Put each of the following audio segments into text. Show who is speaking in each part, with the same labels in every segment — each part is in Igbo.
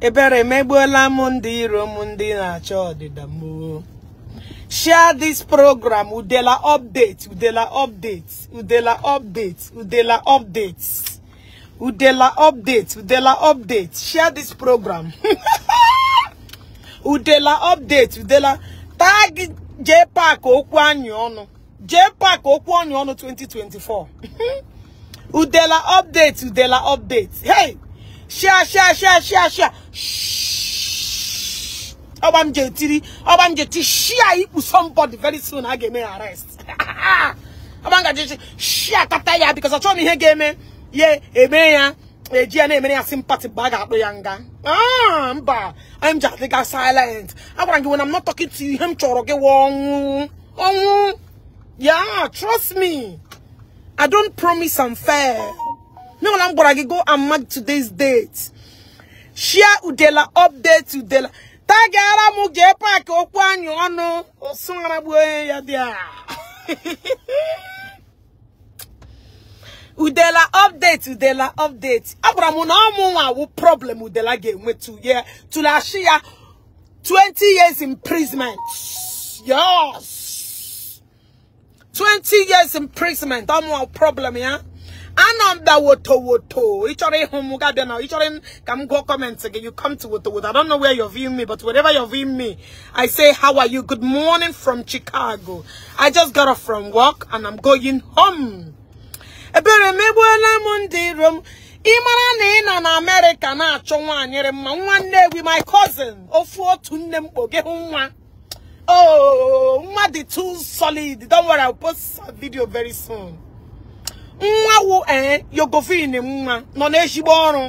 Speaker 1: ebere megbuola m ndị iro m ndị na-achọ ọdịda m share this program udela update udela update udela update udela update udela update udela update share this program udela update udela tag jpac okwu anyị ọnụ jpac okwu anyị ọnụ 2024 udela update udela update hey shia shia shia shia shia ọgba m je tiri ọgba m je ti share ikpu somebody very soon a ga-eme ya arrest ha m gaji share tata ya because achọghị m ihe ga-eme ya eme ya eji ya na-emere ya sympathy mgbe a ga-akpụ ya nga ah, mba m ji adịga silent agwara gị when I'm not talking to you ihe m chọrọ gị ọnwụ ọnwụ yeah trust me I don't promise I'm fair No mana m go and mark today's date share udela update udela tagara m jee paaki okwu anyụ ọnụ osụaragbu onye ya dị udela update udela update agwara na ọmụ nwa awụ problem udela ga-enwe tuye tụlashi ya 20 years imprisonment yes 20 years imprisonment ọmụ problem ya Ananda woto woto. Ịchọrọ ịhụ m ga bịa na go ka m comment again. You come to woto woto. I don't know where you're viewing me, but wherever you're viewing me, I say how are you? Good morning from Chicago. I just got off from work and I'm going home. Ebere m egbuola m ndị iro m. Ị mara na ị nọ na day na na-achọ nwaanyịrị mma nwanne gị my cousin ofu otu nne m kpoge nwa. Oh, nwa the too solid. Don't worry, I'll post a video very soon. nwa wu eh yogofin nwa nọ na-eshigbo ọrụ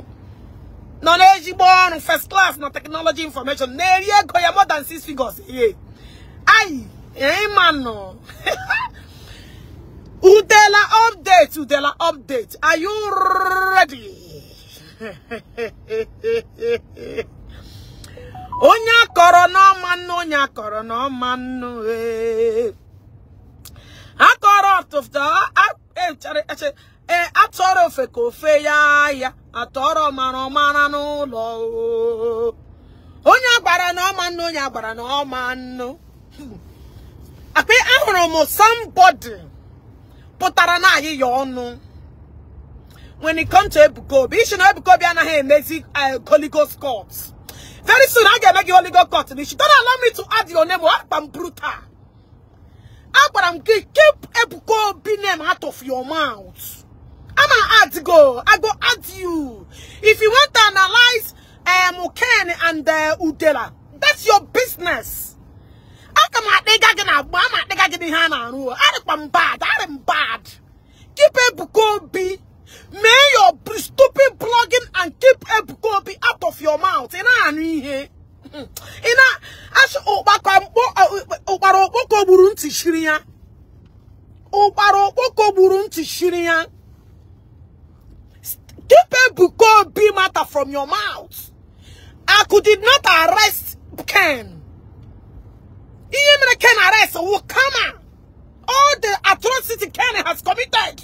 Speaker 1: nọ na ọrụ first class na technology information na-eri ego ya more than six figures ye ayi eh, ịma nọ udela update udela update are you ready onye akọrọ n'ọma nnu onye akọrọ n'ọma nnu eh. akọrọ tụfta ee eh, eh, eh, atọrọ ofe ka ofe ya ya atọrọ mara ọmara n'ụlọ onye agbara na ọma nnu onye agbara na ọma nnu akpa ahụrụ m somebody pụtara na anyị ọnụ when it comes to Ebuka ishi na ebukobi anaghị emezi Holy Ghost court very soon a ga-eme gị Holy Ghost court n'ishi don't allow me to add your name or akpa m brutal agwara m gị keep Ebuka name out of your mouth ama add go I go add you if you want to analyze um, Ken and uh, Udela that's your business aka m akpịga gị na agba ama akpịga gị n'ihe a na-arụ arịkwa m bad arị m bad keep Ebuka Obi mee your stupid blogging and keep Ebuka Obi out of your mouth ị na-anụ ihe ị mm. na-achị ụkpara okpoko gburu ntị shiri ya ụkpara okpoko gburu ntị shiri ya keep Ebuka matter from your mouth Aku did not arrest Ken ihe mere Ken arrest will come all the atrocity Ken has committed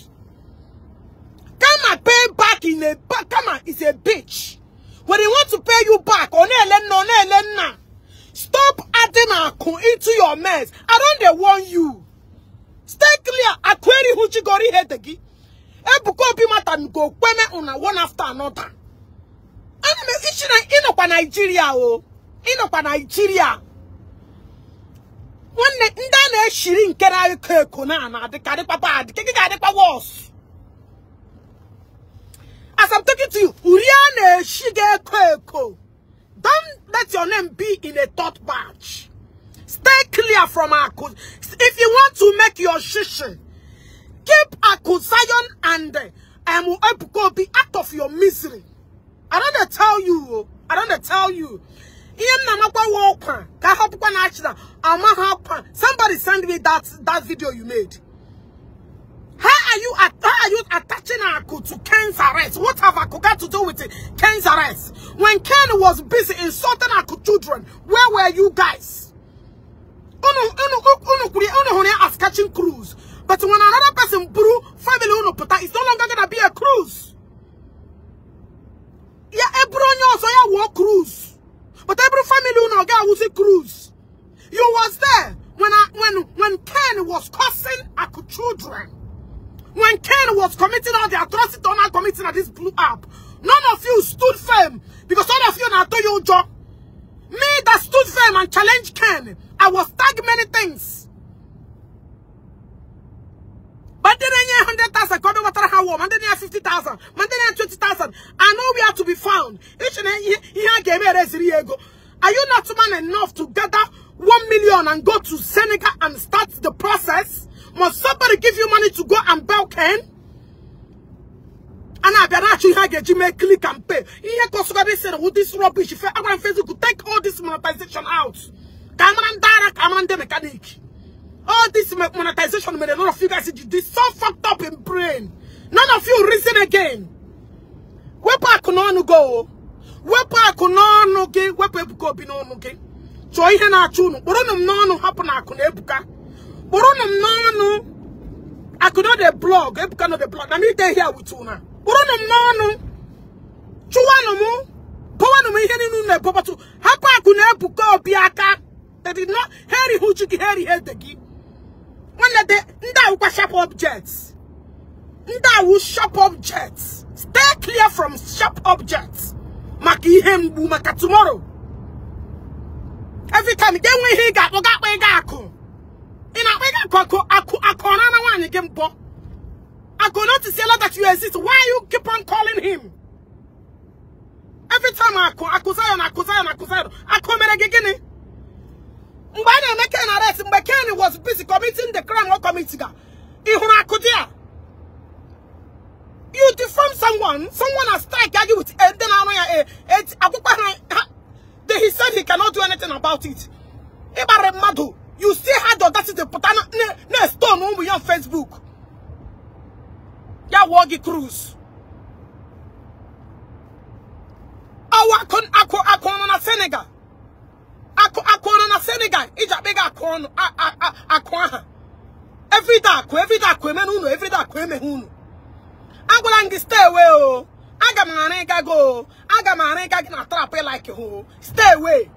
Speaker 1: Kama pay back in a Kama is a bitch were they want to pay you back, stop adding akụ into your mess. I don't they warn you. Stay clear. Akweri huchigori hete gi. Ebuko obi mata go kweme una one after another. Ana me iji na inokwa Nigeria o. nọkwa Nigeria. Nwanne ndị a na-eshiri nke na na-ana adịkarịkwa bad, keke ga As I'm talking to you, Uriane Shige Koeko. Don't let your name be in a thought batch. Stay clear from Akus. If you want to make your shishin, keep Akusayon and um, Ebukobi out of your misery. I don't tell you. I don't tell you. Somebody send me that, that video you made are you how are you attaching Aku to Ken's arrest? What have Aku got to do with it? Ken's arrest? When Ken was busy insulting Aku children, where were you guys? Unu unu unu unu unu as catching cruise. But when another person brew family unu puta, it's no longer gonna be a cruise. Yeah, every so yeah war cruise. But every family unu get was a cruise. You was there when I when when Ken was cursing Aku children. When Ken was committing all the atrocity man committing at this blue app, none of you stood firm because all of you now do your job. Me that stood firm and challenged Ken, I was tagged many things. But then I 100,000, God over how warm, and then 50,000, and then 20,000. I know where to be found. Each and every game, are you not man enough to gather 1 million and go to Senegal and start the process? Must somebody give you money to go and buy Ken? And I better actually have a Gmail click and pay. Here, Kosovo said, with this rubbish, if I want Facebook, take all this monetization out. Cameron direct, I'm the mechanic. All this monetization made a lot of you guys did. this so fucked up in brain. None of you reason again. Where Wepa kunonu go. Wepa kunonu ge. Wepa ebuko binonu ge. So ihe na achunu. Boronu mnonu hapu na akune happen. Burunum no no. I could not the blog. I cannot not the blog. I need to here with you now. Burunum no no. Chuano mu. Powano mu heri nu ne papa tu. Hapa akuna ebuka obiaka. They did not Harry huchiki heri hedegi. When the nda ukwa sharp objects. That will shop objects. Stay clear from shop objects. Maki ihe maka tomorrow. Every time they win he got oga kwe ga akun akoko ako akona na wanye gembo. Akona to see that you exist. Why you keep on calling him? Every time I call, I call Zion, I call Zion, I call Zion. I call Meregigini. Mbana make an arrest. Mbekeni was busy committing the crime or committing. Ihuna akudia. You defame someone. Someone has strike argue with. And eh, then I know. Eh, eh, then he said he cannot do anything about it. Ibarre madu you still had the audacity to put on a stone on Facebook. Ya Woggy Cruz. Awa kon ako ako na Senegal. Ako ako na Senegal. Ija bega ako no ako aha. Every day ako every day ako men uno every day ako men uno. Agwala ngi stay away o. Aga ma na ga go. Aga ma na ga na trap like you. Stay away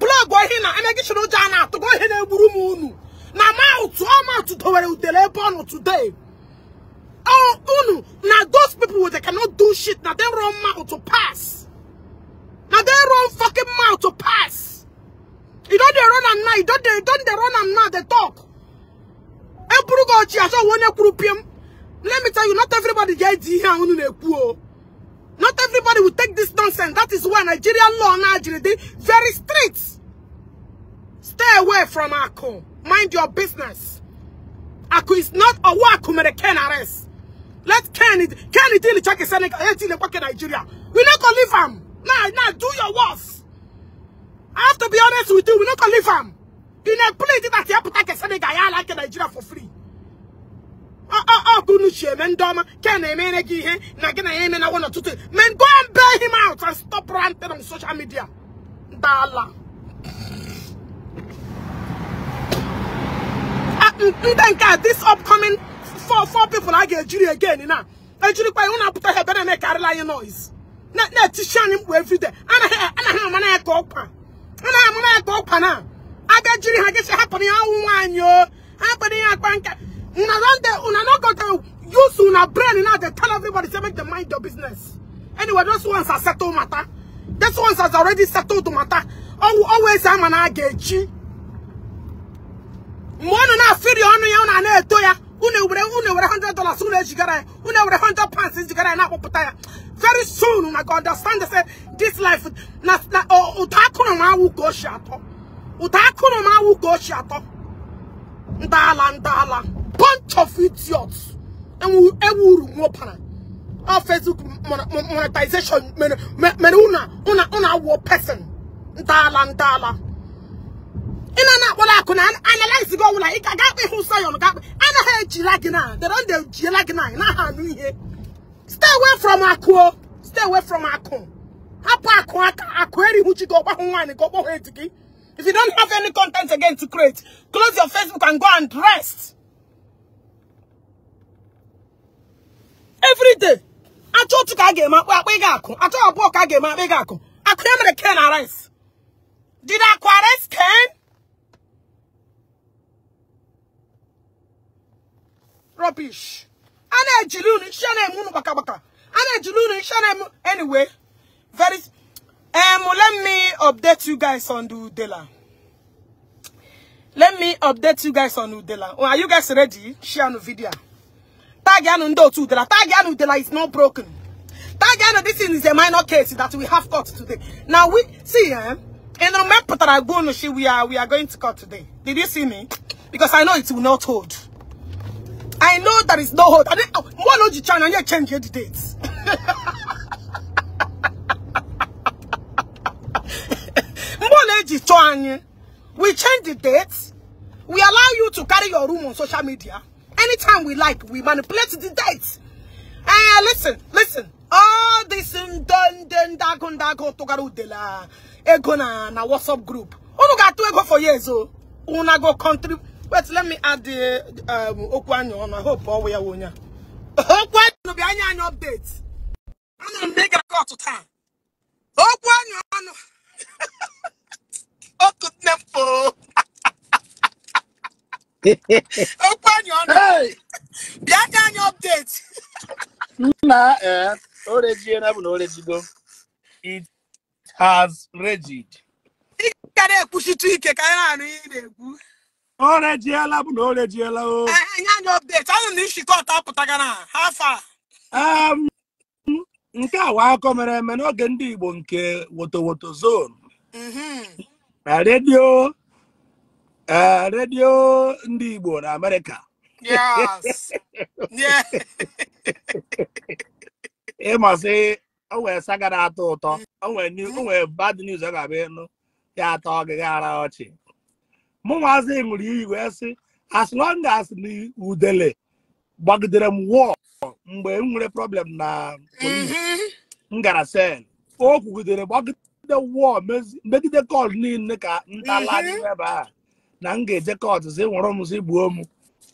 Speaker 1: plọg ohi na emegichin ụjọ a na-atụgo ihe na-egburu m unu na maụtụ ọmatụ dowere udele ebe ọ nọ today unu now those people with they cannot do shit Now they run mouth to pass Now they run fucking mouth to pass you don't they run am now you don dey don dey run am now they talk eburu gị ọchị asọ onye kwuru piem let me tell you not everybody ga here on the unu Not everybody will take this nonsense. That is why Nigerian law Nigeria very strict. Stay away from Aku. Mind your business. Aku is not a work American arrest. Let Kenny Kenny deal check his Nigeria. We not gonna leave him. Now, now do your worst. I have to be honest with you, we not gonna leave him. You know, please that you have to take a Senegal like Nigeria for free. Akunuchi ndị ọma ke na-emere gị ihe na gị na n'ọtụtụ men go and bail him out and stop ranting on social media ndala ndị nke this upcoming four four people a ga-ejiri again na ejiri ihu na-apụta ha ebe na-emekarịla anyị noise na-etichi anyị mkpu everyday day ya ka anaghị amara ya ka ọkwa na a ejiri ha gịsị hapụrụ ya ụmụ nwaanyị o hapụrụ ya akpa nka Una run there, una not got to use una brain now they tell everybody to make the mind your business. Anyway, those ones are settled matter. Those ones has already settled matter. Always I'm an agechi. Mwana na firi onu ya una na eto ya. Une were une were 100 dollars soon une jigara. Une a 100 pounds since you jigara na poputa ya. Very soon una oh, go understand say this life na na utakuno oh, ma wu go shato. Utakuno ma wu go shato. Ndala ndala bunch of idiots. And we will wopana. Our Facebook monetization, men, menuna, una, una, war person. Dala, dala. ina na akpọrọ akụ na analyze gị ọbụla ị ga akpa ịhụ sayọn ga akpa anaghị ejila gị na dara ndị ejiela gị na naghị anụ ihe stay away from akụ stay away from akụ hapụ akụ aka akụ erihụ chi gị ọgbahụ nwaanyị ka ọgbahụ if you don't have any content again to create close your facebook and go and rest every day achọ otu ka a ga-eme akpụ akpụ ị ga-akụ achọ abụọ ka a ga ga-akụ akụ mere ken arise. did akụ arrest ken
Speaker 2: rubbish
Speaker 1: a na-ejili unu iche na-eme unu baka. gbaka a na-ejili unu iche na-eme anyway very um let me update you guys on the udela let me update you guys on udela are you guys ready share no video Tagiano Ndotu Udela. Tagiano Udela is not broken. Tagiano, this is a minor case that we have court today. Now we see eh? In the map we are we are going to cut today. Did you see me? Because I know it will not hold. I know there is no hold. I didn't one oh, logic channel you change the dates. We change the dates. We allow you to carry your room on social media. anytime we like. We manipulate the dates. Ah, uh, listen, listen. All this dun dun dagon dagon togaru de la ego na na WhatsApp group. Unu ga tu ego for years oh. Una go country. Wait, let me add the um okwanyo on. I hope all we are wonya. Okwanyo be anya anya update. Ana mega to time. Okwanyo on. Okutnepo.
Speaker 2: okwu anyị ọnụ bịa ka anyị ọpdeti nna ee eh, orejiela bụ na orejigo it has regid ị gara ekwuchitu ike ka anyị na-anụ ihe na-ekwu orejiela bụ na orejiela o nye
Speaker 1: eh, eh, anyị ọpdeti anụ na ishikọ
Speaker 2: um, nke a mere eme n'oge ndị Igbo nke wotowoto zone mhm. na redio ee eh, redio ndị Igbo na Amerịka ịmasị o nwere sagara atọ ụtọ o nwere bad news ọ ga-abịa ịnụ ya atọ ọgịga ara ọchị mụ nwazi ṅụrụ iyi wee sị as long as na udele gbagidere m wọọ mgbe m nwere problem na mm-hmm. m gara sel o kwugidere gbagide wọọ megide kọl niile ka ntala mm-hmm. ebe a na m ga-eje kọtụ si nwụrụ m si gbuo m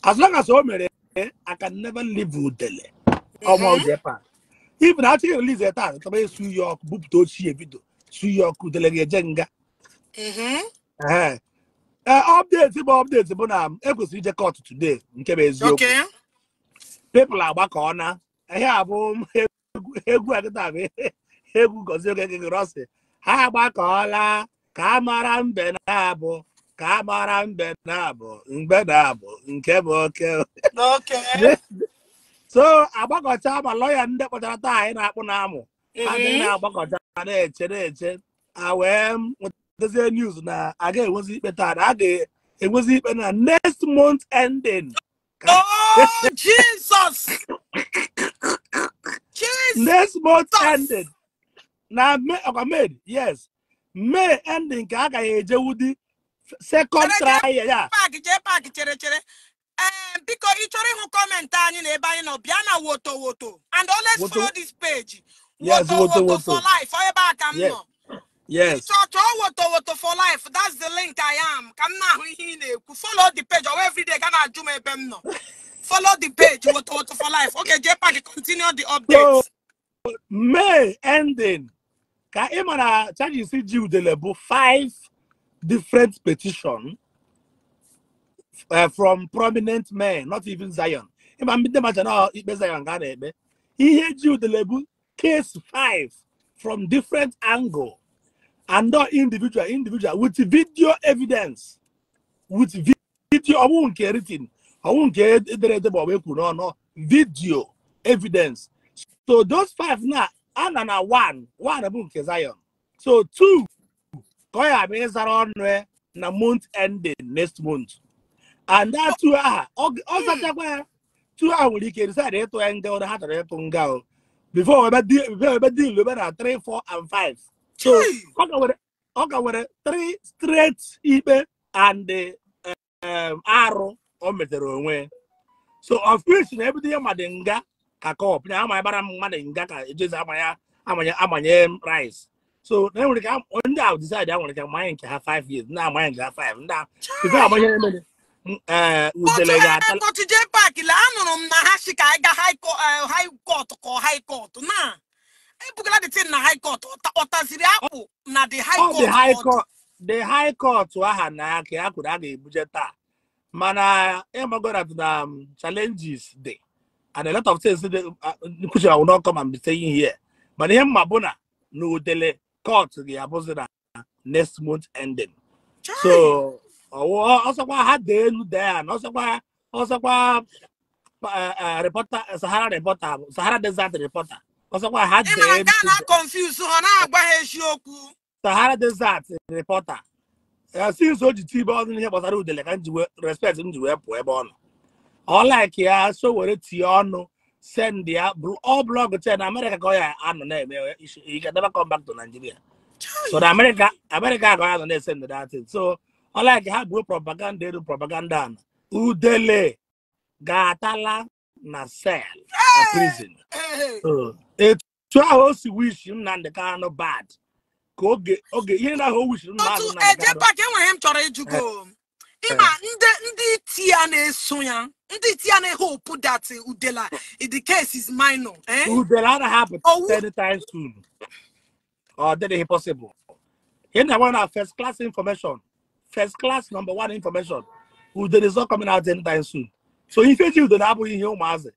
Speaker 2: as long as o mere I can never live udele mm-hmm. ọma Japan ibu na achọghị release taa taba esu ya ọkụ bupụta ochie bido su ya ọkụ udele ga-eje nga mm-hmm. ee update bụ update bụ na ekwesịrị ije kọtụ today nke bụ eziokwu people agbakọ na ihe a bụ egwu agịta bụ egwu gozie oge gịgịrọsị ha agbakọọla ka a mara mbe na abụ ka a gbara mbe na mgbe na-abụ nke bụ oke so agbakọcha ma lọya ndị kpọchara taa anyị na-akpụ na amụ anyị mm-hmm. na-agbakọcha na-eche na-eche a wee nwetazie news na a ga-enwezi ikpe taa a ga-enwezi ikpe na next month ending Oh, Jesus! Jesus! Next month ending. Na May, yes. May ending ka a ga-ejewudi second try ya
Speaker 1: Pak jee paaki chere chere ee eh, biko ị chọrọ ịhụ kọmentị anyị na ebe anyị nọ bịa na woto woto and always follow this page
Speaker 2: woto woto for life
Speaker 1: ọ ebe a ka m nọ Yes. So chọọ woto woto for life that's the link I am ka m na-ahụ ihe ị na-ekwu follow the page ọwa everyday ga na-ajụ m ebe m nọ follow the page woto woto for life okay
Speaker 2: Pak continue the updates. May ending ka ị mara charges ji udele bụ 5 different petition uh, from prominent men, not even Zion. Ndị mmadụ na ikpe Zion ga na-ekpe. Ihe ji case 5 from different angle and not individual individual with video evidence with video I won't written it in. I won't ma the bụ ekwu No video evidence so those five now. And one, one one won't nke Zion so two ka ọ bụ ịzara ọnụ e na month ending next month and that ọ zachakwa ya nwere ike ịtụ ya nga ụra ha chọrọ ịtụ nga o before ebe ebe na 3 4 and 5 so ọ ka nwere 3 straight ikpe and um, arụ o metere onwe so of na ebido ya madị nga ka kọp na ama bara mmadụ nga ka ejezi amanye amanye rice so na enwere ka ndị ahụ decide a nwere ka mmanya nke ha 5 years ndị amanya nke ha 5 ndị ahụ. ife agbanye emere udele ga-ata
Speaker 1: tọchije pak la anụrụ m na ha si ka ga high court ka uh, high court na ebugara the thing na high ọtaziri oh, akpụ na the high
Speaker 2: oh, court the aha na ka a kwuru a ga-ebuje taa mana ịmagona eh, na um, challenges dị and a lot of things nkuchi awụ n'ọkọ ma mbite ihe mana ihe eh, mma bụ na na court ga-abụzi na next month ending so ọsọkwa ha dee elu dee ya na ọsọkwa ọsọkwa eh, eh, reporter eh, sahara reporter sahara desert reporter ọsọkwa ha dee elu confuse ha na-agba ha okwu. sahara desert reporter since o ji tibe ọdụ n'ihe gbasara udele ka njiwe respect njiwe pụọ ebe ọ nọ ọ like ya so were tie ọnụ send ya all blog ten America ka ọ ya anọ na-eme he can never come back to Nigeria so na America America ka ọ ya anọ na-esend that thing so unlike ha buo propaganda elu propaganda na udele ga-atala na cell na prison etu ahụ o si wish Nnamdị Kanụ bad ka oge oge ihe na ahụ o wish Nnamdị eh, Kanụ bad. Otu eje pak enwere m chọrọ ịjụgo ịma ndị
Speaker 1: ndị iti ya na-eso ya ndị tia na hope that udela in the case is
Speaker 2: minor eh? udela na happen oh, ten times soon or that is possible here na one first class information first class number one information udele is not coming out ten times soon so ife ji udele abụghị ihe ụmụazị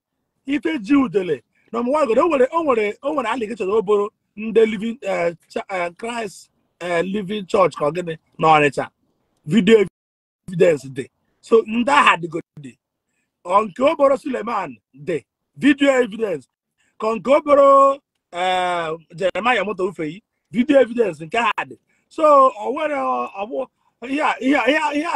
Speaker 2: ife ji udele number one godo onwere onwere onwere allegation oboro ndị living uh, christ uh, living church ka ọ gịnị na ọnịcha video evidence dị so ndị agha dịgodi nke o Suleman dị vidiyo evidence ka nke eh, o Jeremaya moto ufeyi vidiyo evidence nke ha dị so o ihe a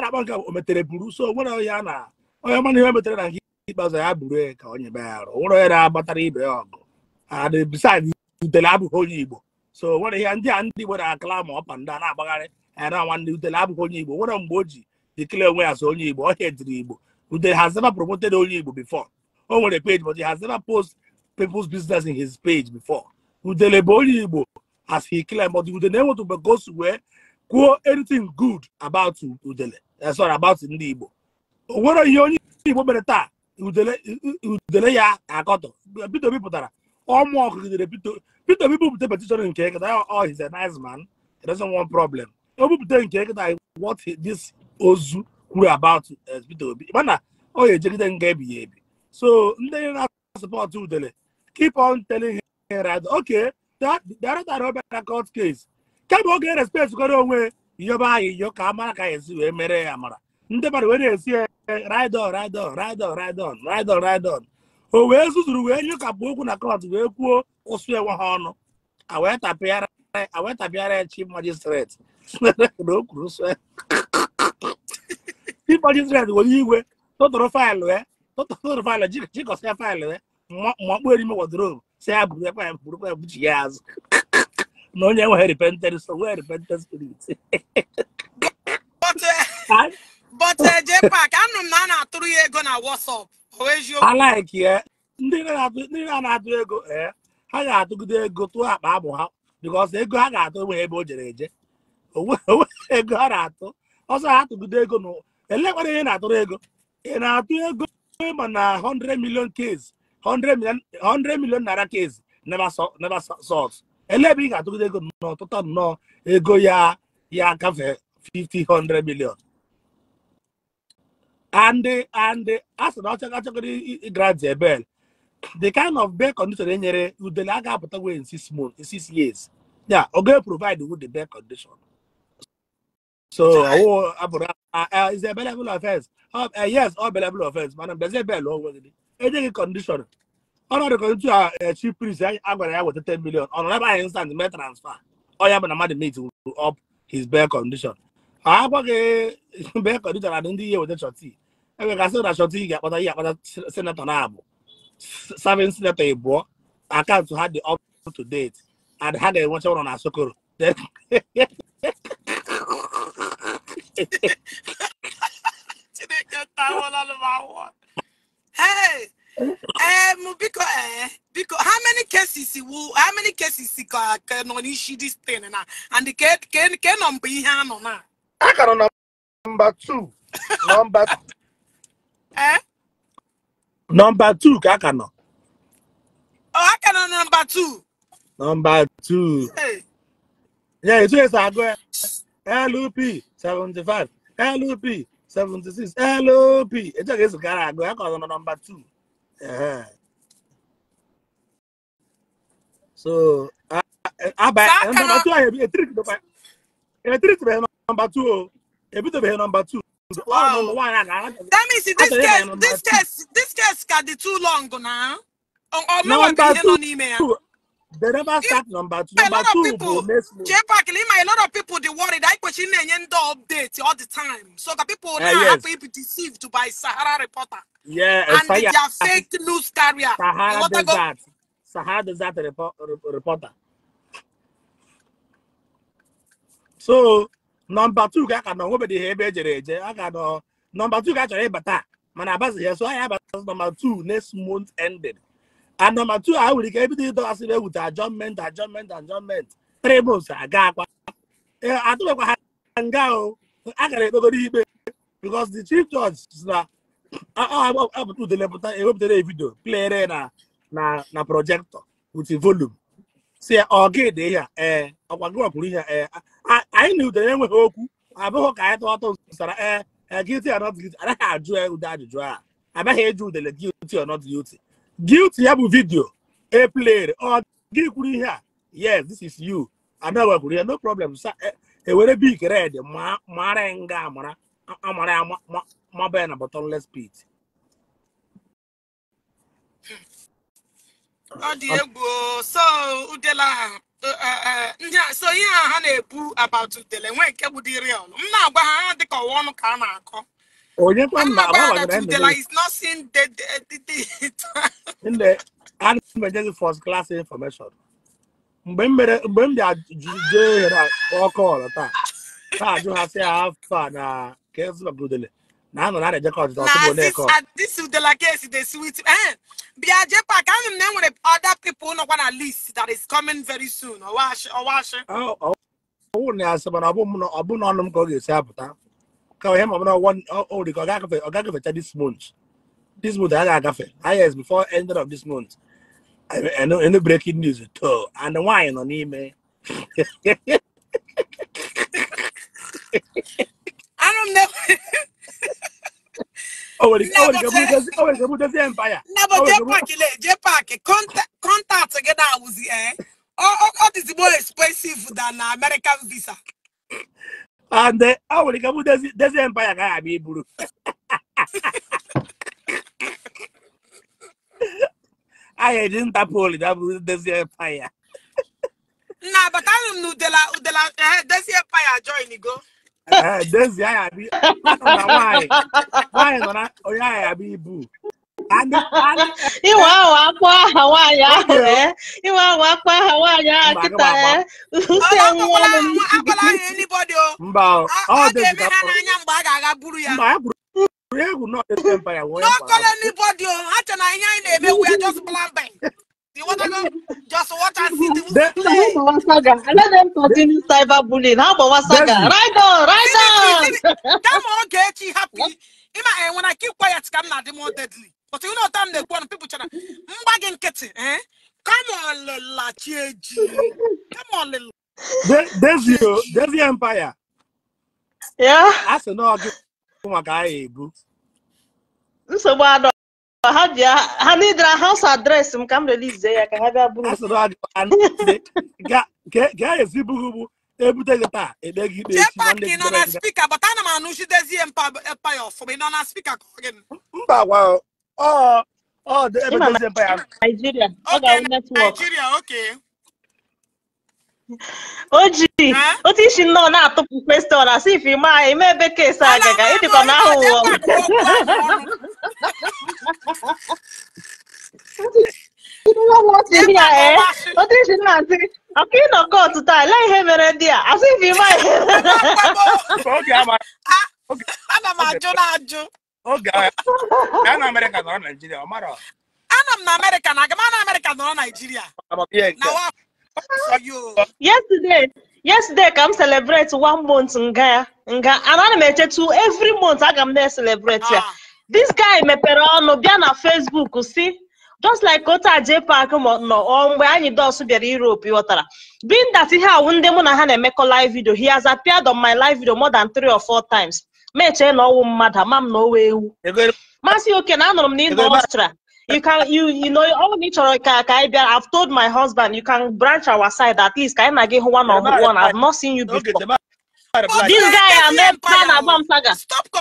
Speaker 2: na-akpọ nke o buru so onwere ya na onye mana ihe metere na nke ikpeazụ ya buru ka onye be ya arụ onwere onye na-agbatara ibe ya ọgụ and ah, utele abụghị onye Igbo so onwere ihe ndị a ndị Igbo na-akala ma ọpa ndị a na-agbagharị ya na nwanne utele abụghị onye Igbo nwere mgbe o ji dekele onwe ya so onye Igbo ọhịa ediri Igbo that has never promoted only Igbo before. Oh, what a page, but he has never posted people's business in his page before. Udelebo only Igbo, as he claimed, but Udele never to go somewhere, quote anything good about Udele. That's eh, not about Igbo. What are you only Igbo better? udele ya akọtọ Peter Obi pụtara ọmụ ọkụ gidere Peter Obi bupụta petishọn nke nkịta oh, oh he's a nice man he doesn't want problem o bupụta nke nkịta what this ozu kwuru about eh, Peter Obi mana ọ ga-ejegide nga ebighị ebi so ndị na-asụpọtụ udele keep on telling him right okay dara obere court case kemgbe oge e respect kwara onwe yọba anyị yọ ka amara ka esi wee mere ya mara. ndị mmadụ wee na-esi ride on ride on ride on o wee zuzuru wee nyụkapụ okwu na kọt wee kwuo ụsụ enwe ha ọnụ awee tapịara ya chief magistrate o kwuru sụ ịkpọchi Israel were igwe tụtụrụ faịlụ ya eh, tụtụrụ faịlụ jikọsịa faịlụ eh, ya makpuo erime wodrobu si ya bụrụ ekwe bụrụ ya azụ na onye nweghị repented so nwee repented spirit but eh,
Speaker 1: m na a na-atụrụ ya ego na WhatsApp
Speaker 2: ndị na-atụ ego ee ha ga-atụgide ego tụọ akpa abụ ha because ego ha ga-atụ o jere eje ego ha na-atụ atụgide ego elekwara ihe na-atụrụ ego ị na-atụ ego ịma na 100 million case 100 million naira case never sold ele ebe ị ga-atụgide ego n'ọtụtụ nnọọ ego ya ya gafe 500 million and and a sị na ọchọgachọgoro grant ebel the kind of bed condition e nyere udele a ga-apụta wee in six years ya ọ provide eprovide with the bed condition so àwọn àbùrà uh, uh, is a bellable offence uh, uh, yes all bellable offence madam dozie bell ọgwụgwụ ejighị condition ọnọdụ kọntu a chi prince a gwara ya weta 10 million ọ nọ n'ebe anyị instant mee transfer ọnya bụ na mmadụ meet up his bail condition a agwaghị bail condition na ndị ihe weta chọti enwegasị na chọti ga-akpata ihe akpata senatọ na-abụ serving senator ịbụọ akaụntụ ha dị up to date and ha ga-enwecha ụlọ na sokoro
Speaker 1: Chineke tawala n'ụwa Hey, um, how many cases will, how many cases ka ka nọ n'isi this thing na, and the can can ke nọmba ihe a
Speaker 2: I na. A two, nọmba.
Speaker 1: Eh?
Speaker 2: Number two I a Oh, I ka number two. Number two. Hey. Yeah, it's just a go. LOP seventy five LOP seventy six LOP etu a ga-esi gara agụ ya ka ọzọ nọ number two so aba nọmba two ahụ etiritebeghị Number two o a number two Wow.
Speaker 1: That means this case, this case, this case got the too long now. Or, or number two,
Speaker 2: they never start number two. Number two people, J-Pack,
Speaker 1: Lima, a lot of people they worry that question and update all the time. So the people uh, now yes. have be deceived by Sahara reporter.
Speaker 2: Yeah, eh, and Sahara, they are ah,
Speaker 1: fake news carrier. Sahara does that.
Speaker 2: Sahara does that report, reporter. So number two ka ka nọ nwebedi ha ebe ejere eje a ga nọ number two ka chọrọ eh, ịbata mana abazighị so anyị abata number two next month ended. anamatu e a nwere ike ebido ịdọghasịrị ewute ajọmentị ajọmentị ajọmentị tribụls aga akwa atụbekwa ha nga o a gara ekpegoro ikpe because the chief judge na apụta udelepụta ewepụtara vidio plere na na na projektọ with volume si ya ọ gị dị ihe ee ọkwa gị wapụrụ ihe ee anyị na udere enweghị okwu abụghị ka anyị tụ ọtọ nsara ee gilty or not gilty anaghị ajụ ude ajụjụ a abaghị eji udele gilty or not gilty guilty ya bụ vidio e played ọ gị kwuru ihe a yes this is you ada kwuru ya no problem sa ewere e bik red mara nga amara amara ya maba ya na bottomless pit
Speaker 1: ọ dị egwu so udela e, e, so ihe a ha na-ekwu about udele nwe nke bụ dị real m na-agwa ha ha dịka ọwa ọnụ ka a na-akọ
Speaker 2: Oye, pues nada, like that. Today, like, it's
Speaker 1: not seen the, the, the,
Speaker 2: the in the emergency first class information. Mgbe m mere mgbe m bịa jee ọkụ ọrụ taa taa ajụ ha sị afọ a na kesị na brudele na anọ na na-ejekọ ọjụjụ ọtụtụ bụ na-ekọ. Na
Speaker 1: this udela case sweet eh bịa jee pak anụ na enwere other people nọkwa na list that is coming very soon ọwa ashị.
Speaker 2: Ọwụ na ya sị mana ọ bụ na ọnụ m ka ọ ga-esi apụta. Kwa hema mna Oh, the ogagafe ogagafe this month. This month ogagafe. I yes, before end of this month. I, know any breaking news at all. And the wine on him. I don't know. Oh, well, oh, well, oh, well, oh, the empire. No, but
Speaker 1: J Park, contact, together with the eh. Oh, oh, oh, this more expensive than American
Speaker 2: visa. and ọ nwere ike bụ dezi empaya gaghị abịa iburu anyị eji ntapol dabụrụ dezi mpaya.
Speaker 1: nna abatanụ m na udela udela dezi empaya join go
Speaker 2: dezi anyị abịa nwaanyị nwaanyị nọ na onye ya abịa ibu
Speaker 3: Ìwà apa apá àwọn àyà rẹ̀, ìwà àwọn apá àwọn àyà kíta ẹ̀, ṣé ń wọ́n lè ní.
Speaker 2: Akwala anyị anybody ya. Mba o. Ọ ga-eme ha n'anya a ga-aga buru ya. Mba, egwu nọ ete mba ya. N'ọkọla anybody o,
Speaker 3: ha chọ na ihe anyị na-eme we are just blabbing. Just water sit. Let them continue cyberbullying. How about Wasaga? Right on, right on.
Speaker 1: That one get you happy. Ima, eh, when I keep quiet, come now, the more deadly. but you know time na-ekwu ọnụ people chara mgba gị nkịtị kamọlịlachi eh? eji kamọlịla
Speaker 2: Devio
Speaker 3: Devio Empire a sị na ọgụ maka aha ebu nsogbu adọ ha ji ha nidra haus adresị m ka m relize ya ka ha bịa buru eh, ga ezibughị bụ ebute
Speaker 2: gị taa ekpe gị ikpe echi nwanne gị nọ na
Speaker 1: spika bata ana m anụchi dezie empire ọfụma ị nọ na spika kọrọ
Speaker 2: gị mba gwa Oh, oh, the Ebenezer Empire. Nigeria.
Speaker 3: Okay, Nigeria, okay. oji eh? o ti si nnọọ na-atụpụ kwestion na si ife ma eme ebe kesi agaga ịdịkwa na ahụ ụwa o ti si na asị ọka ịnọ kot taa ele ihe mere ndị a asị ah, ife ma ihe
Speaker 2: ana m ajụ na ajụ oge ya na amerịka nọrọ naijiria ọ mara Ana m na
Speaker 1: amerịka na agama na amerịka nọrọ naijiria
Speaker 3: yesterday yesterday ka m celebrate one month nga nga ana m echetu every month aga m na-celebrate ya ah. this guy mepere ọnụ bịa na facebook si just like ota je park nọ mgbe anyị dos bịara europe ịghọtara, being that ihe awụ ndị mụ na ha na-emekọ live video he has appeared on my live video more than three or four times ma echee na ọnwụ mmadụ ama m na owe ewu masị oke na anụrụ m na ịnọ ọchịchịra you can you you know all ni chọrọ ka ka anyị bịa I've told my husband you can branch our side at least ka anyị na gị one on one I've not seen you before this guy ameka na agba m saga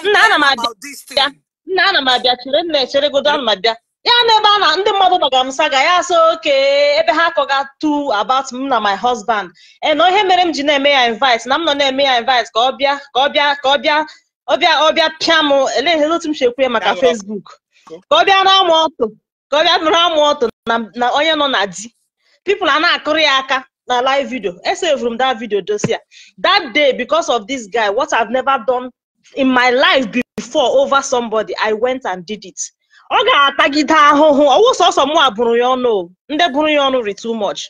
Speaker 3: nna ana m abịa nna ana m abịa chere nna echeregodo ana m abịa ya na ebe a na ndị mmadụ gbagara m saga ya so oke ebe ha akọga tu about m na my husband ee na ihe mere m ji na-eme ya invite na m nọ na-eme ya invite ka ọ bịa ka ọ bịa ka ọ bịa ọbịa ọbịa pịa m eleghị otu m si ekwu ya maka Facebook ka ọ bịa na ọtụ ka ọ bịa nụrụ amụ ọtụ na onye nọ na di people a na-akụrụ ya aka na live video esevuru m that video dosia that day because of this guy what I've never done in my life before over somebody I went and did it ọ ga-atagide ahụhụ ọwụ sọsọ mụ a bụrụ ya ọnụ ndị bụrụ ya ọnụ ri too much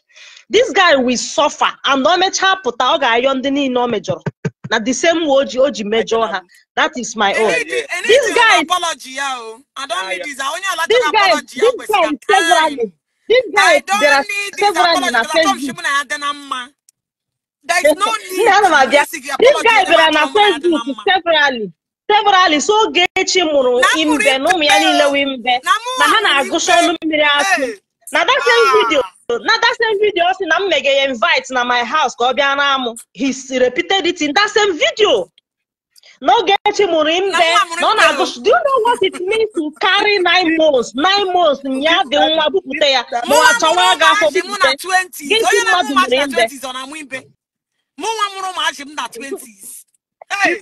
Speaker 3: this guy will suffer and ọ mechaa pụta ọ ga-ayọ ndị niile ọ mejọrọ na the same oji oji mejọ ha that is my own this guy apology
Speaker 1: ya o i don't need this onye alachara apology ya kwesịrị
Speaker 3: time this guy there are several na facebook there is no need to this guy several, na facebook severally severally so ogechi mụrụ imbe na ụmụ ya niile wee mbe na ha na-agụcha ọnụ mmiri akụ na that same video ga ya invite na my house ka ọ na amụ his repeated it in that same video No, get him imbe na ọ na-agụ do you know what it means to carry nine months nine months ya dị nwa bupụta ya ma ọ chọwa ga afọ bupụta gịnị mmadụ mụrụ
Speaker 1: imbe mụnwa mụrụ maachị m na 20s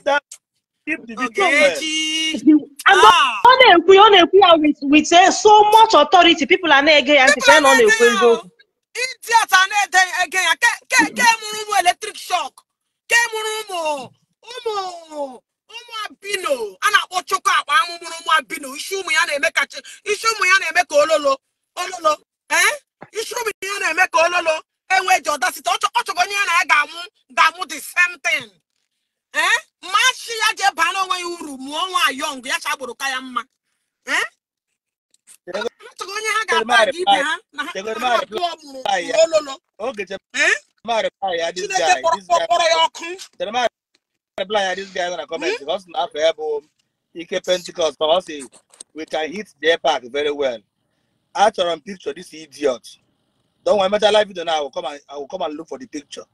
Speaker 1: ah!
Speaker 3: ọ na-ekwu ya Ah. na-ekwu ya with eh, so much authority people are not ege ya ntị na ọ ịdị asa na-ede
Speaker 1: ege ya ke mụrụ ụmụ eletrik shọk ke mụrụ ụmụ ụmụ ụmụ abino a na-akpọ chukwu akpa amụmụrụ ụmụ abino isi ụmụ ya na-eme ka isi ụmụ ya na-eme ka ololo ololo ee isi ụmụ ya na-eme ka ololo enwee ji site ọchọgo onye ya na ya ga-amụ ga-amụ the same thing ee mmachi ya jee baa onwe ya uru mụọ nwa yọng ya chagburu ka ya mma ee
Speaker 2: onye
Speaker 1: ha ga-ata gị ibe ha na
Speaker 2: abụọ ololo ya ike pentikọst we can hit the park very well achọrọ m picture this idiot don't emechala vidio na I will and look for the picture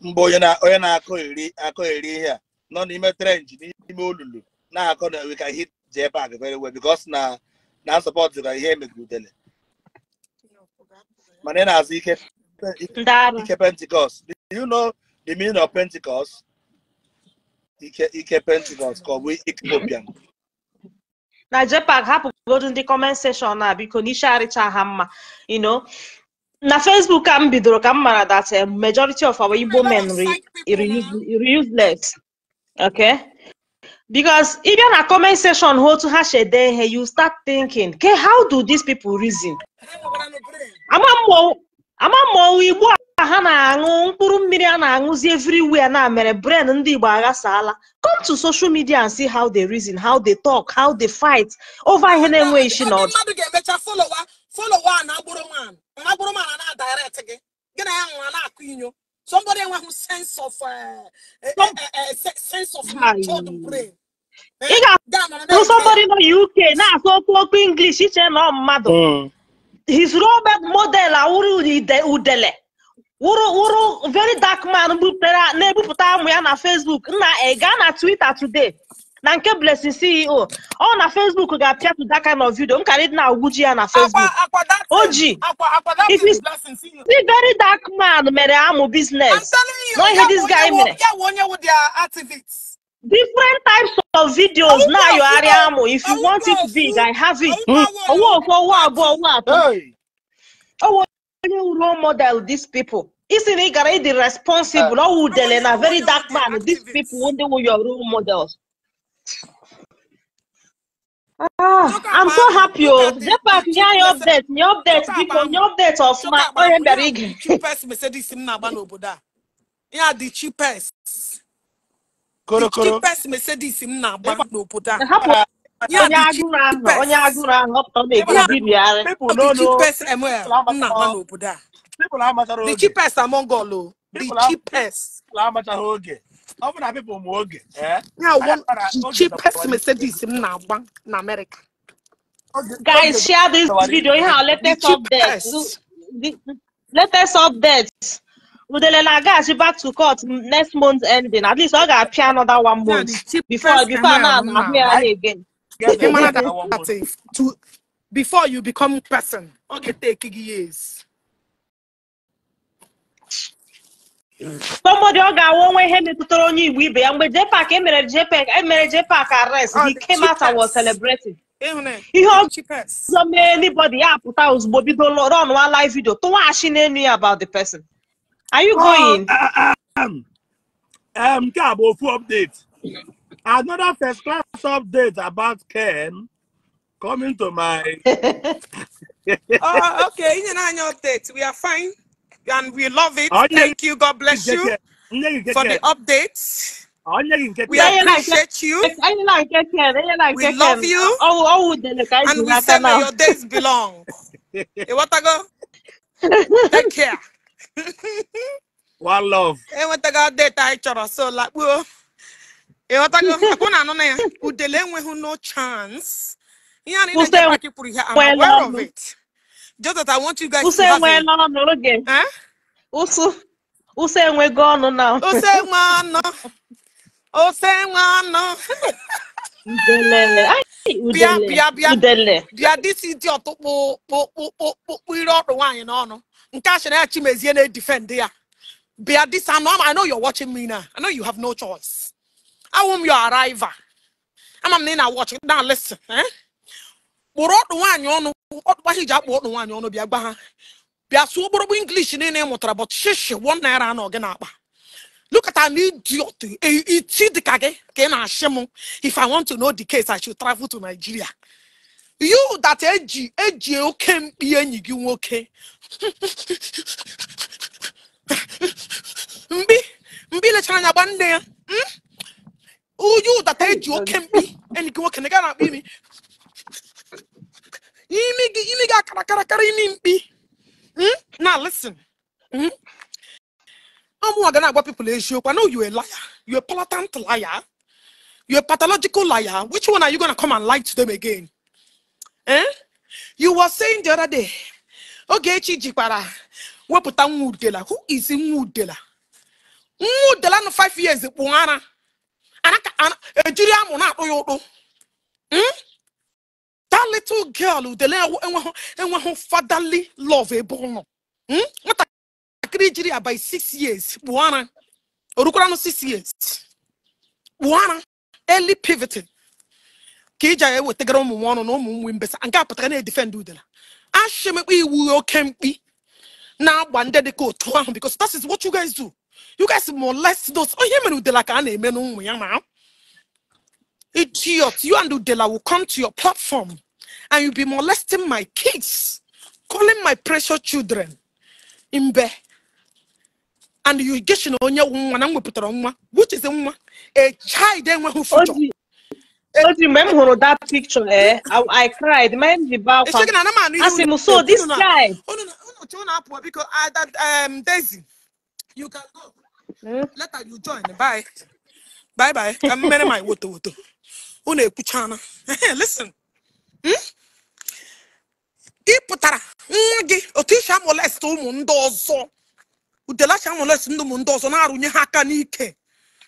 Speaker 2: mbụ onye na-akọ eri ihe a nọ n'ime trenji n'ime olulu na-akọ na we can hit the park very well because na na support ka ihe emegiridele mana ị na-azụ ike ike pentikọst do you know the meaning of pentikọst ike ike pentikọst ka ọ bụ ikpopian
Speaker 3: na JPAC hapụgodu ndị kọment seshọn a biko n'isi arịcha ha mma you know na Facebook ka m bidoro ka m mara that majority of our Igbo men re useless okay because ị e bịa na comment seshọn hụ otu ha si ede ihe you start thinking ke how do these pipo reason ama mmọnwụ igbo a ha na-aṅụ mkpụrụ mmiri a na-aṅụzi everywhere na mere bren ndị igbo aghasaala come to social media and see how they reason how they talk how they fight over ihe na-enweghị isi na ọdụ
Speaker 1: somebody enweghị sense of uh, uh, uh,
Speaker 3: ị ga-ahụ somebody nọ UK na-asụ okwu okwu English iche na mmadụ hmm. his role model awụrụ udele wụrụ very dark man na-ebupụta amụ ya na Facebook nna gaa na Twitter today na nke blessing ceo ọ na facebook ga-apịa to that kind of nkari m na agwuji ya na facebook o ji e very dark man mere amụ business no ihe this guy mere different types of videos now you are amu if you want it big i have it owó òfò owó àbọ owó àbọ owó onye role model these people isi na ị gara ịdị responsible ọ ah. wudele na very dark man these people ndị wụ your role models. Ah, ah I'm so happy o. Zepak nye anyị update ni update biko ni update
Speaker 1: of my bịara ige. Cheapest Mercedes m na-agba n'obodo a. a dị cheapest korokoro pes mercedes m na-agba n'obodo a onye agụrụ ahụ onye agụrụ ahụ ọ na-egobi bịarị cheapest ml m na-agba n'obodo
Speaker 2: a the cheapest among all o oh. the cheapest oge ọ bụ na pipụl ma oge the cheapest
Speaker 1: na-agba na amerịka guys share this video ihe a latest update
Speaker 3: latest update Udele na agaghachi back to court next month ending at least ọ ga-apịa another one month before before na ahụ ya again.
Speaker 1: before you become person ọ ga years.
Speaker 3: somebody ọ ga-awụ onwe ihe metụtara onye Igbo ibe ya mgbe jpak emere JPAC emere arrest oh, he came out and was celebrating. ihe ọzọ mee anybody ya apụta ozugbo bido live video tụwaghachi n'enu ya about the person. Are you going? uh, uh um,
Speaker 2: um, Cabo, full update. Another first class update about Ken coming to my. oh, okay.
Speaker 1: In an update, we are fine and we love it. Thank you. God bless you for the
Speaker 3: updates. We appreciate you. We love you. Oh, oh, oh, and we say your days belong.
Speaker 1: Take care. one love enwetago data anyị chọrọ so lakpuo ịghọtago akwụ na anụ na ya udele enweghị no chance
Speaker 3: ihe anyị na-eji kwuru ihe I'm aware of it Joseph I want you guys Uso to have it. n'oge. Uso Uso enwego ọnụ na. Uso enwe ọnụ. Uso enwe ọnụ. Udelele. Bịa bịa bịa. Udele.
Speaker 1: Bịa si dị ọtụ kpụ kpụ kpụ kpụ kpụ ire ọdụ nwaanyị n'ọnụ. nke a sịrị ya chimezie na-edifend ya bịa disanụm I know you're watching me now I know you have no choice awụm m your arrival ama m na ị na-watch na listen eh? kpụrụ ọdụ nwaanyị ọnụ ọdụkwa iji akpụ ọdụ nwaanyị ọnụ bịa gba ha bịa sụọ okporokpo English niile ị mụtara but shishi one naira anọ gị na-akpa lukata na idiot iti dịka gị ka ị na-ashị m if I want to know the case I should travel to Nigeria you that eji eji oke mkpi enyi gị nwoke mbi mbi lechara anya gba Hmm. Oh, you that eji oke mkpi enyi gị nwoke na gaa na-akpa imi imi gị imi gị akara akara karịa imi Hmm. Now listen Hmm. I'm ọmụnwa gonna agwa people you. I know you a liar you a palatant liar you are a pathological liar which one are you gonna come and lie to them again Eh? you were saying the other day Ogechi jikwara wepụta nwa udela who is nwa udela nwa udela nọ 5 years kpụ ara ejiri amụ na-akpụ ya ụkpụ hmm? that little girl udele enweghị fatherly love ebe ụlọ hmm? nwatakịrị jiri ya by years kpụ ara orukwara years kpụ early pivoting ka iji agha ewetagara ụmụ nwa ọnụ na ụmụ nwe mbesa nke a pụtara na-edifendị udela ashimekpa iwu oke mkpi na-agba ndị dịka otu ahụ because that is what you guys do you guys molest those Oh, mere udela ka a na-eme n'ụmụ ya idiot you and udela will come to your platform and you be molesting my kids calling my precious children imbe, and you get onye nwa na m wepụtara
Speaker 3: which is nwa a child enweghị future Oji, mgbe m hụrụ that picture, eh, I cried, mind the bow kwa. Asị m, so this guy. Unu
Speaker 1: ah, um, hmm? ekwuchana. Listen. Hmm? nwa gị otu isi amolest ụmụ ndị ọzọ. Udelachi amolest ndị ụmụ ndị ọzọ na-arụnye ha aka n'ike.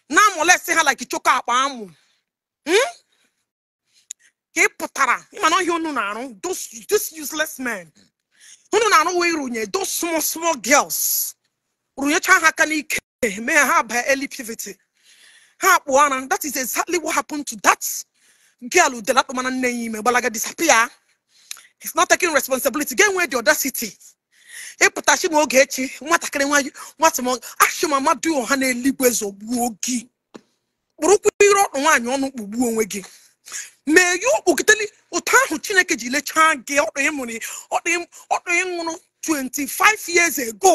Speaker 1: Na-amolest ha like akpa amụ. Hmm? ka ị pụtara mana ọhịa unu na-arụ those useless men unu na-arụ wee runye those small small girls runyecha ha aka n'ike mee ha baa early puberty ha akpụ ara that is exactly what happened to that girl udelakpamana nne ya ime gbalaga disappear is not taking responsibility get where the audacity ịpụtachi na oge echi nwatakịrị nwanyị nwata m achị mama ah, du ọha na eluigwe zọgbuo gị kpụrụkwa ire ọkpụ nwaanyị ọnụ kpugbuo onwe gị mee gị okpokiteli ụtọ ahụ chineke ji lechaa gị ọkpọị nwụrụ 25 years ago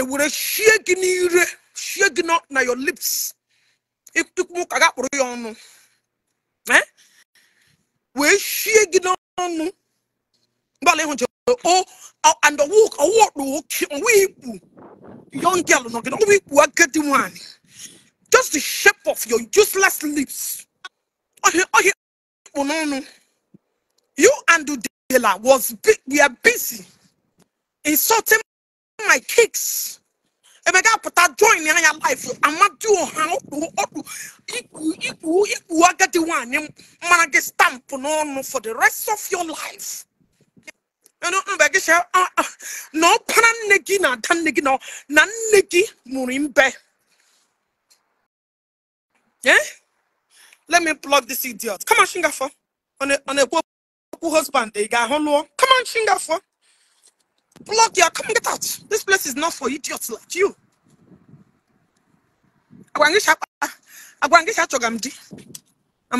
Speaker 1: ewere shie gị n'ire shie gị na your lips ikwu e ga kpụrụ ya ọnụ eh? wee shie gị n'ọnụ mgbalị ịhụ jere and ọwụkpụ ikpu young girl nọ gị ọwụ ikpu agadi nwanyị just the shape of your useless lips ohi kpụ n'ọnụ you and Dela was we are busy insulting my kicks emeka pụta join anya life amadu ọha ọkpụ ọkpụ ikwu ikwu ikpu agadi nwanyị mara gị stampụ n'ọnụ for the rest of your life mgbe gị si na ọkpara nne gị na ada nne gị na nne gị mụrụ mbe eh? let me block this idiot. Come on, Shingafo. On a on a husband, they got Come on, Shingafo. Block your come get out. This place is not for idiots like you. Am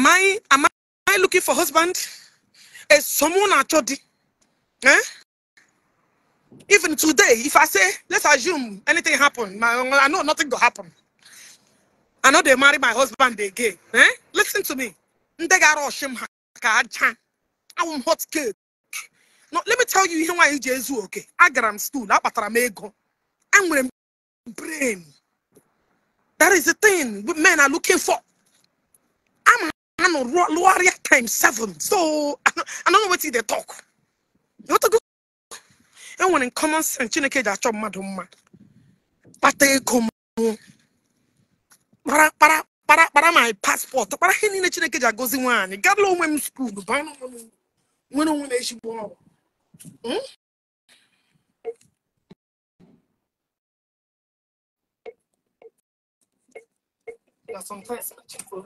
Speaker 1: I am I looking for husband? Is someone actually? Eh? Even today, if I say let's assume anything happened, I know nothing will happen. I know they marry my husband again. Eh? Listen to me. I'm hot cake. No, let me tell you ihe nwaanyị ji ezu oke. Agara m stool, akpatara m ego. Enwere m brain. That is the thing men are looking for. I'm a warrior times seven. So I don't know what they talk. You want to go? Enwere common sense Chineke ji achọ mmadụ mma. Kpata ego m. para para my paspọtụ para ihe niile chineke ji agọzi nwaanyị gabla onwe m skuulu baa nwere onwe
Speaker 3: I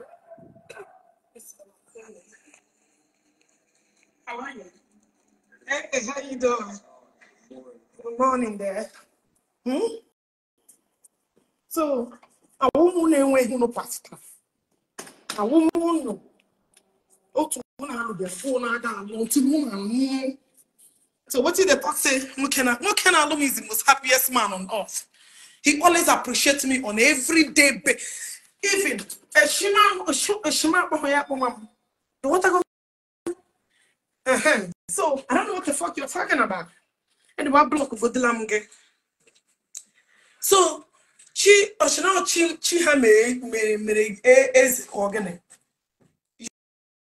Speaker 3: How are you? Hey, how you doing? Good
Speaker 1: morning there. Hmm? So awụmụ na-enweghị nụ pasta awụmụ ụnụ otu mụ na alụ bịara fụọ na-aga alụ otu mụ na alụ so what did the talk say nwoke na nwoke na alụ m is the most happiest man on earth he always appreciates me on every day ba even eshima eshima akpọmọ ya akpọmọ m the water go so i don't know what the fuck you're talking about and the block vodila the gị so chi ọchịnọchị chi ha mere mere eze ka gịnị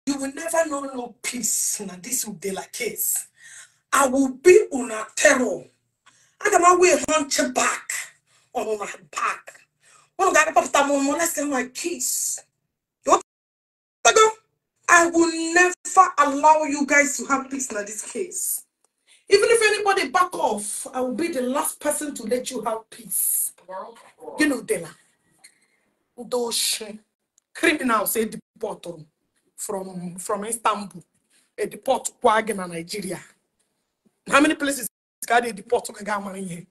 Speaker 1: you will never know no peace na this will be like case i will be una terror aga m awa ihe nche back on my back ụnụ ga-akpọpụta m ụmụ lesson my kids I will never allow you guys to have peace in this case. Even if anybody back off, I will be the last person to let you have peace. You know, Dela. Those criminals say deport from from Istanbul. They deport Kwagina, Nigeria. How many places can they deport to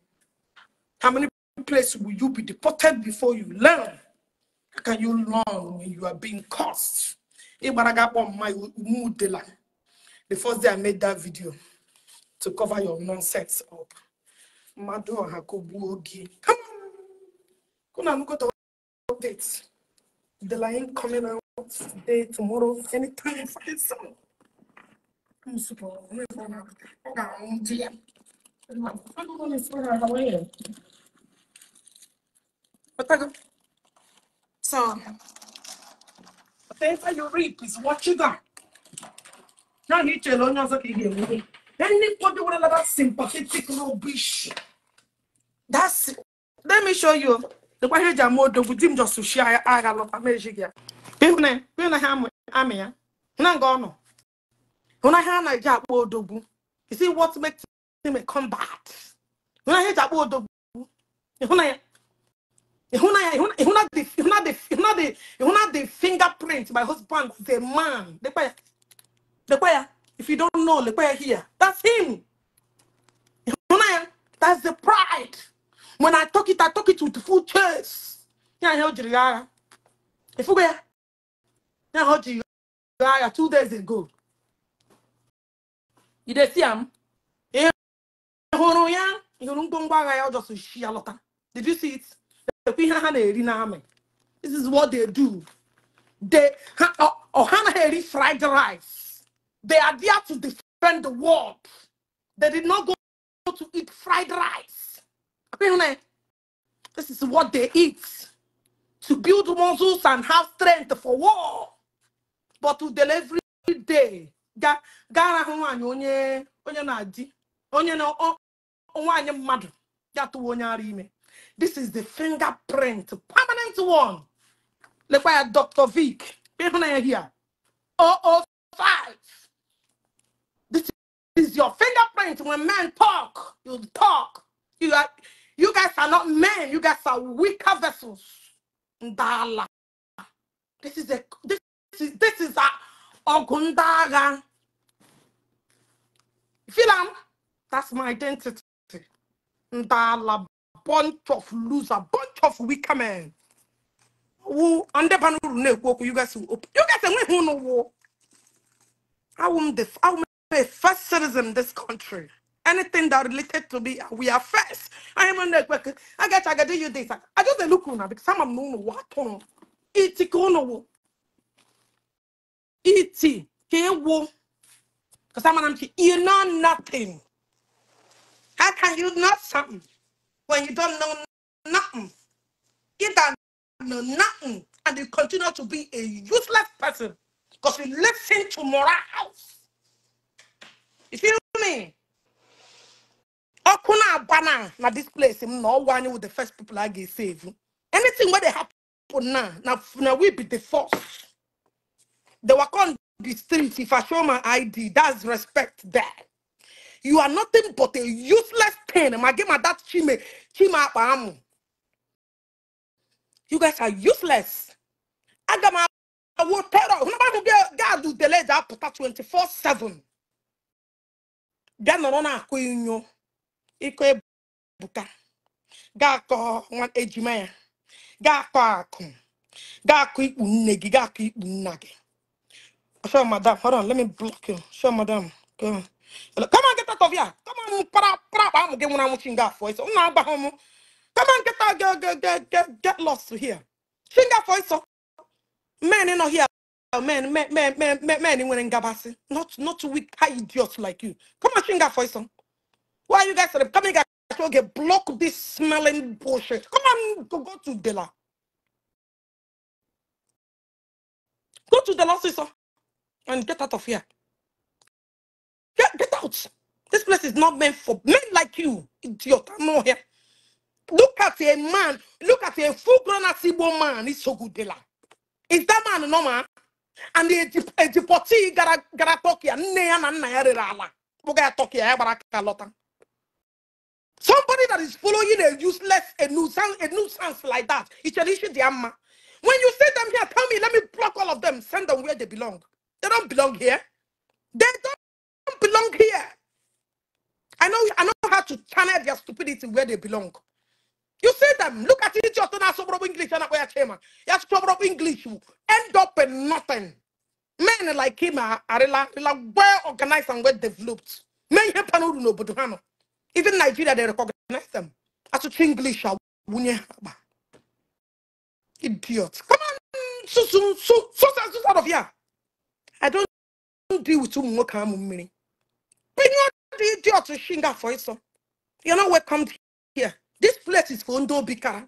Speaker 1: How many places will you be deported before you learn? How can you learn when you are being cursed? The first day I made that video to cover your nonsense up. Madu Hakobuogi. Come on. Kuna look at the updates. The line coming out today, tomorrow, anytime, fucking soon. I'm super. I'm going to I'm going to throw her um, away. So, whatever you reap is what you got. Now, you tell us, okay, here, Anybody with another sympathetic rubbish. That's let me show you. The way he jam odo with him just to share aga lot of magic ya. ya. Huna nga ono. Huna ha odogwu. You see what makes him a combat. Huna ha ja odogwu. Huna ya. ya, the the my husband is a man. Dekwa ya. ya. if you don't know, look where here. That's him. You know, That's the pride. When I talk it, I talk it with full chest. Can't hold you liar. If you we can't hold you liar two days ago. You see him? Yeah. You don't go back. I just see a lot. Did you see it? This is what they do. They, oh, Hannah Harry fried the rice. They are there to defend the world. They did not go to eat fried rice. This is what they eat to build muscles and have strength for war. But to deliver every day, this is the fingerprint permanent one lekwa ya dr vic here 005 your fingerprint when men talk. You talk. You are, you guys are not men. You guys are weaker vessels. Ndala. This is a this is this is a ogundaga. Filam, that's my identity. Ndala, bunch of loser, bunch of weaker men. Who underpanu you guys will open. You guys are who know war. I won't def I won't a first citizen in this country. Anything that related to me, we are first. I am on the I get I get you this. I just look on because some of them what on it kono it can wo because some of them you know nothing. How can you know something when you don't know nothing? You don't know nothing and you continue to be a useless person because you listen to morals. You feel me? Okuna abana na this place no one with the first people I get save. Anything where they happen now, now, now we be the first. They walk on the street. If I show my ID, that's respect there. You are nothing but a useless thing. My game at that chime up apamu. You guys are useless. I I will terror. Nobody will get God to delay that 24 7. bịa nọrọ na-akụ inyo ịkọ ebuka ga-akọ nwa ejima ya ga-akọ akụ ga ikpu nne gị ga ikpu nna gị sure madam hold on let me block you Show madam come on come on get out of here come on para para akpa amụ gị nwụrụ anwụ chi nga afọ ịsọ agba ha come on get out get get get get lost here chi nga afọ ịsọ men nọ here Oh, man, man, man, man, man, man, anyone in Gabasi. Not, not weak, high idiots like you. Come on, sing that for some. Why are you guys coming guys? So get block this smelling bullshit. Come on, go, go to Dela. Go to Dela, sister, and get out of here. Get, get out. This place is not meant for men like you, idiot. I'm not here. Look at a man. Look at a full-grown Asibo man. He's so good, Dela. Is that man normal? and ejipọti gara gara tọkia nne ya na nna ya rere ala kpụga tọkia ya gbara lọta somebody that is following a useless a nuisance a nuisance like that an issue. The amma. when you see them here tell me let me block all of them send them where they belong they don't belong here they don't belong here i know i know how to channel their stupidity where they belong you see them, look at it, just not sober English and where came. Yes, sober English You end up in nothing. Men like him are, are like, well organized and well developed. Men here panuru no but even Nigeria they recognize them. As to English uh, idiot. Come on, so so so so so out of here. I don't deal with too much meaning. Bring on the idiot to shinga for it, so you're not welcome here. This place is for Ondo Bika.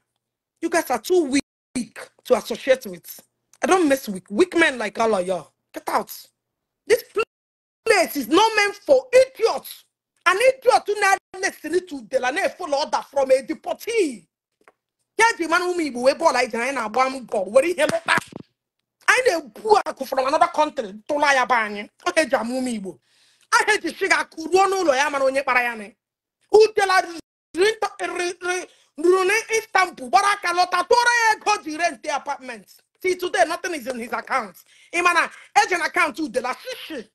Speaker 1: You guys are too weak to associate with. I don't mess with weak men like all of y'all. Get out. This place is not meant for idiots. An idiot who not listening to Delane follow order from a deportee. Yeah, the man who me we ball like Diana Bam God. Where he hello back? I know Buaku from another country. to lie Tolaya Bany. I hate Jamumibo. I hate the sugar. Kuruano Loyaman on tell us? Rent, eh, re, re, Rune Istanbul, Baraka Lotatore, God, he the apartment. See, today nothing is in his account. Imana, agent account to the last. Look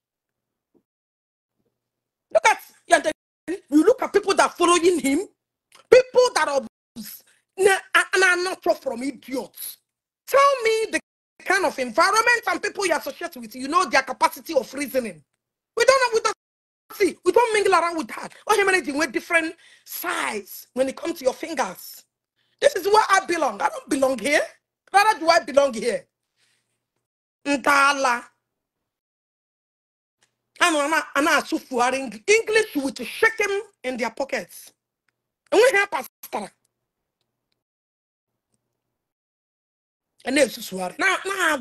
Speaker 1: at You look at people that are following him, people that are, and are not from idiots. Tell me the kind of environment and people you associate with, you know their capacity of reasoning. We don't know, Exactly. We don't mingle around with that. All humanity with different size when it comes to your fingers. This is where I belong. I don't belong here. Rather do I belong here? Ntala. And Anna Sufari English with shaking in their pockets. And we help us. And then Suswari. Now, now,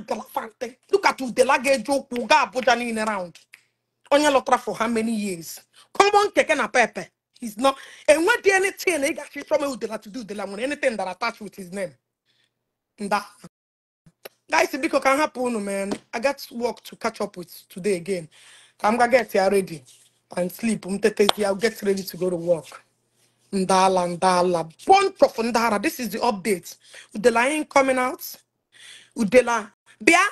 Speaker 1: look at the luggage joke will go around onye lọtara for how many years common keke na pepe he's not enwedi anything ị gachi chọma udela to do udela nwere anything that attached with his name nda guys biko ka m hapụ unu man i got work to catch up with today again ka m ga get ya ready and sleep m tetezi i'll get ready to go to work ndala ndala bunch of ndara this is the update udela ain't coming out udela bịa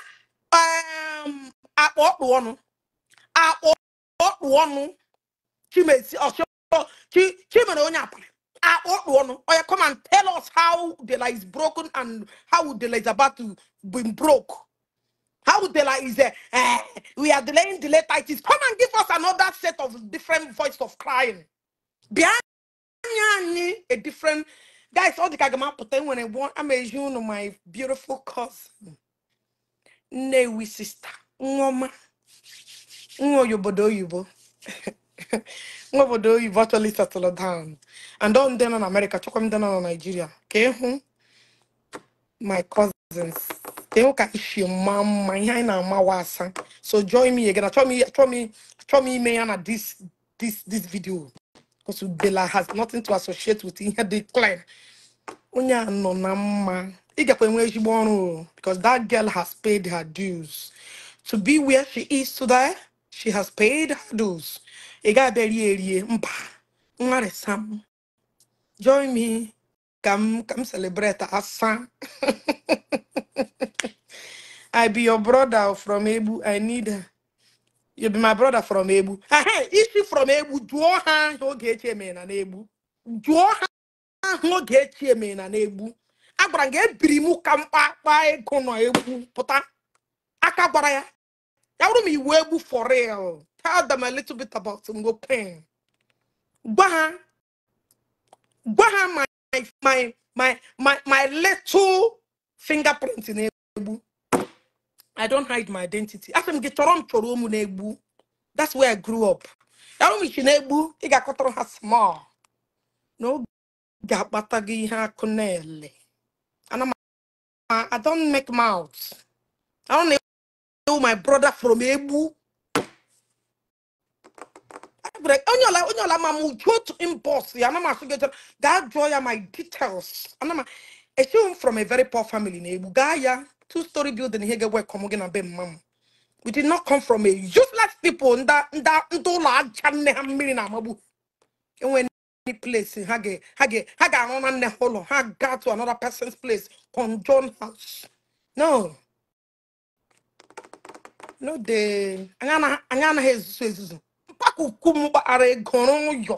Speaker 1: um akpa ọkpụ ọnụ akpọkpụ ọnụ chimezi ọchọ chimere onye akwụrụ akpọkpụ ọnụ oya come and tell us how the law is broken and how the law is about to be broke how the law is uh, uh, we are delaying the delay titles come and give us another set of different voice of crying behind anyị a different guys ọ dịka gama I nwere one you know my beautiful cousin we sister nwoma nwa obodo oyibo nwa obodo oyibo actually settle down and ọ ndị nọ na America chọkwa ndị nọ na Nigeria ka ịhụ my cousins ka ịhụ ka isi mma mma ihe anyị na-amawa asa so join me again achọ m ime ya na this video because Udela has nothing to associate with ihe dị clear onye a nọ na mma ị gakwa enwe ezigbo ọrụ because that girl has paid her dues to be where she is today She has paid her dues. Ega beri sam. Join me. Come come celebrate asa. I be your brother from Ebu. I need her. You be my brother from Ebu. Ah, hey, is she from Ebu? Do her oge cheme na Ebu. Do her oge cheme na Ebu. Agbara nge get mu kampa pa ego no Ebu. Puta. Aka gbara ya. That would be webu for real. Tell them a little bit about Ngo Pen. Gwaha. Gwaha my my my my my little fingerprint in Ebu. I don't hide my identity. around That's where I grew up. That would be Chinebu. He got caught on her small. No gabata ha kunele. And I'm I don't make mouths. I don't my brother from Ebu. onyola, onyola, mamu, go to impulse. I am so get that joy are my details. And mama, I see from a very poor family in Ebu. Gaya, two-story building here, get work, come again, and be We did not come from a useless people. Nda, nda, ndola, chane, hamiri na mabu. And when any place, hage, hage, hage, anona neholo, Haga to another person's place, conjoin house. No. n'o n'oge anyị anaghị ezuzu ezuzu mkpakuku m gbara egoro ụyọ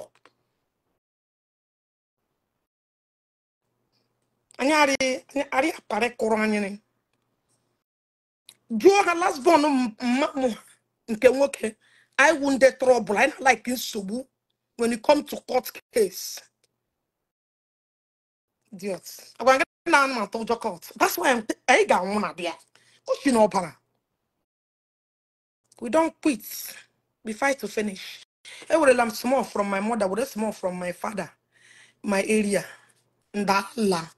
Speaker 1: anyị arị aparị kụrụ anyịrị jụọ ha lasbon mma m nke nwoke I wu ndị trọbụl anyị na-alaiki nsogbu when you come to court case idiot agwa gị na anụ atọ ụjọ court that's why anyị ga-anwụ na bịa kochi na ọbara We don't quit. We fight to finish. Every I'm small from my mother, we small from my father, my area. Ndala.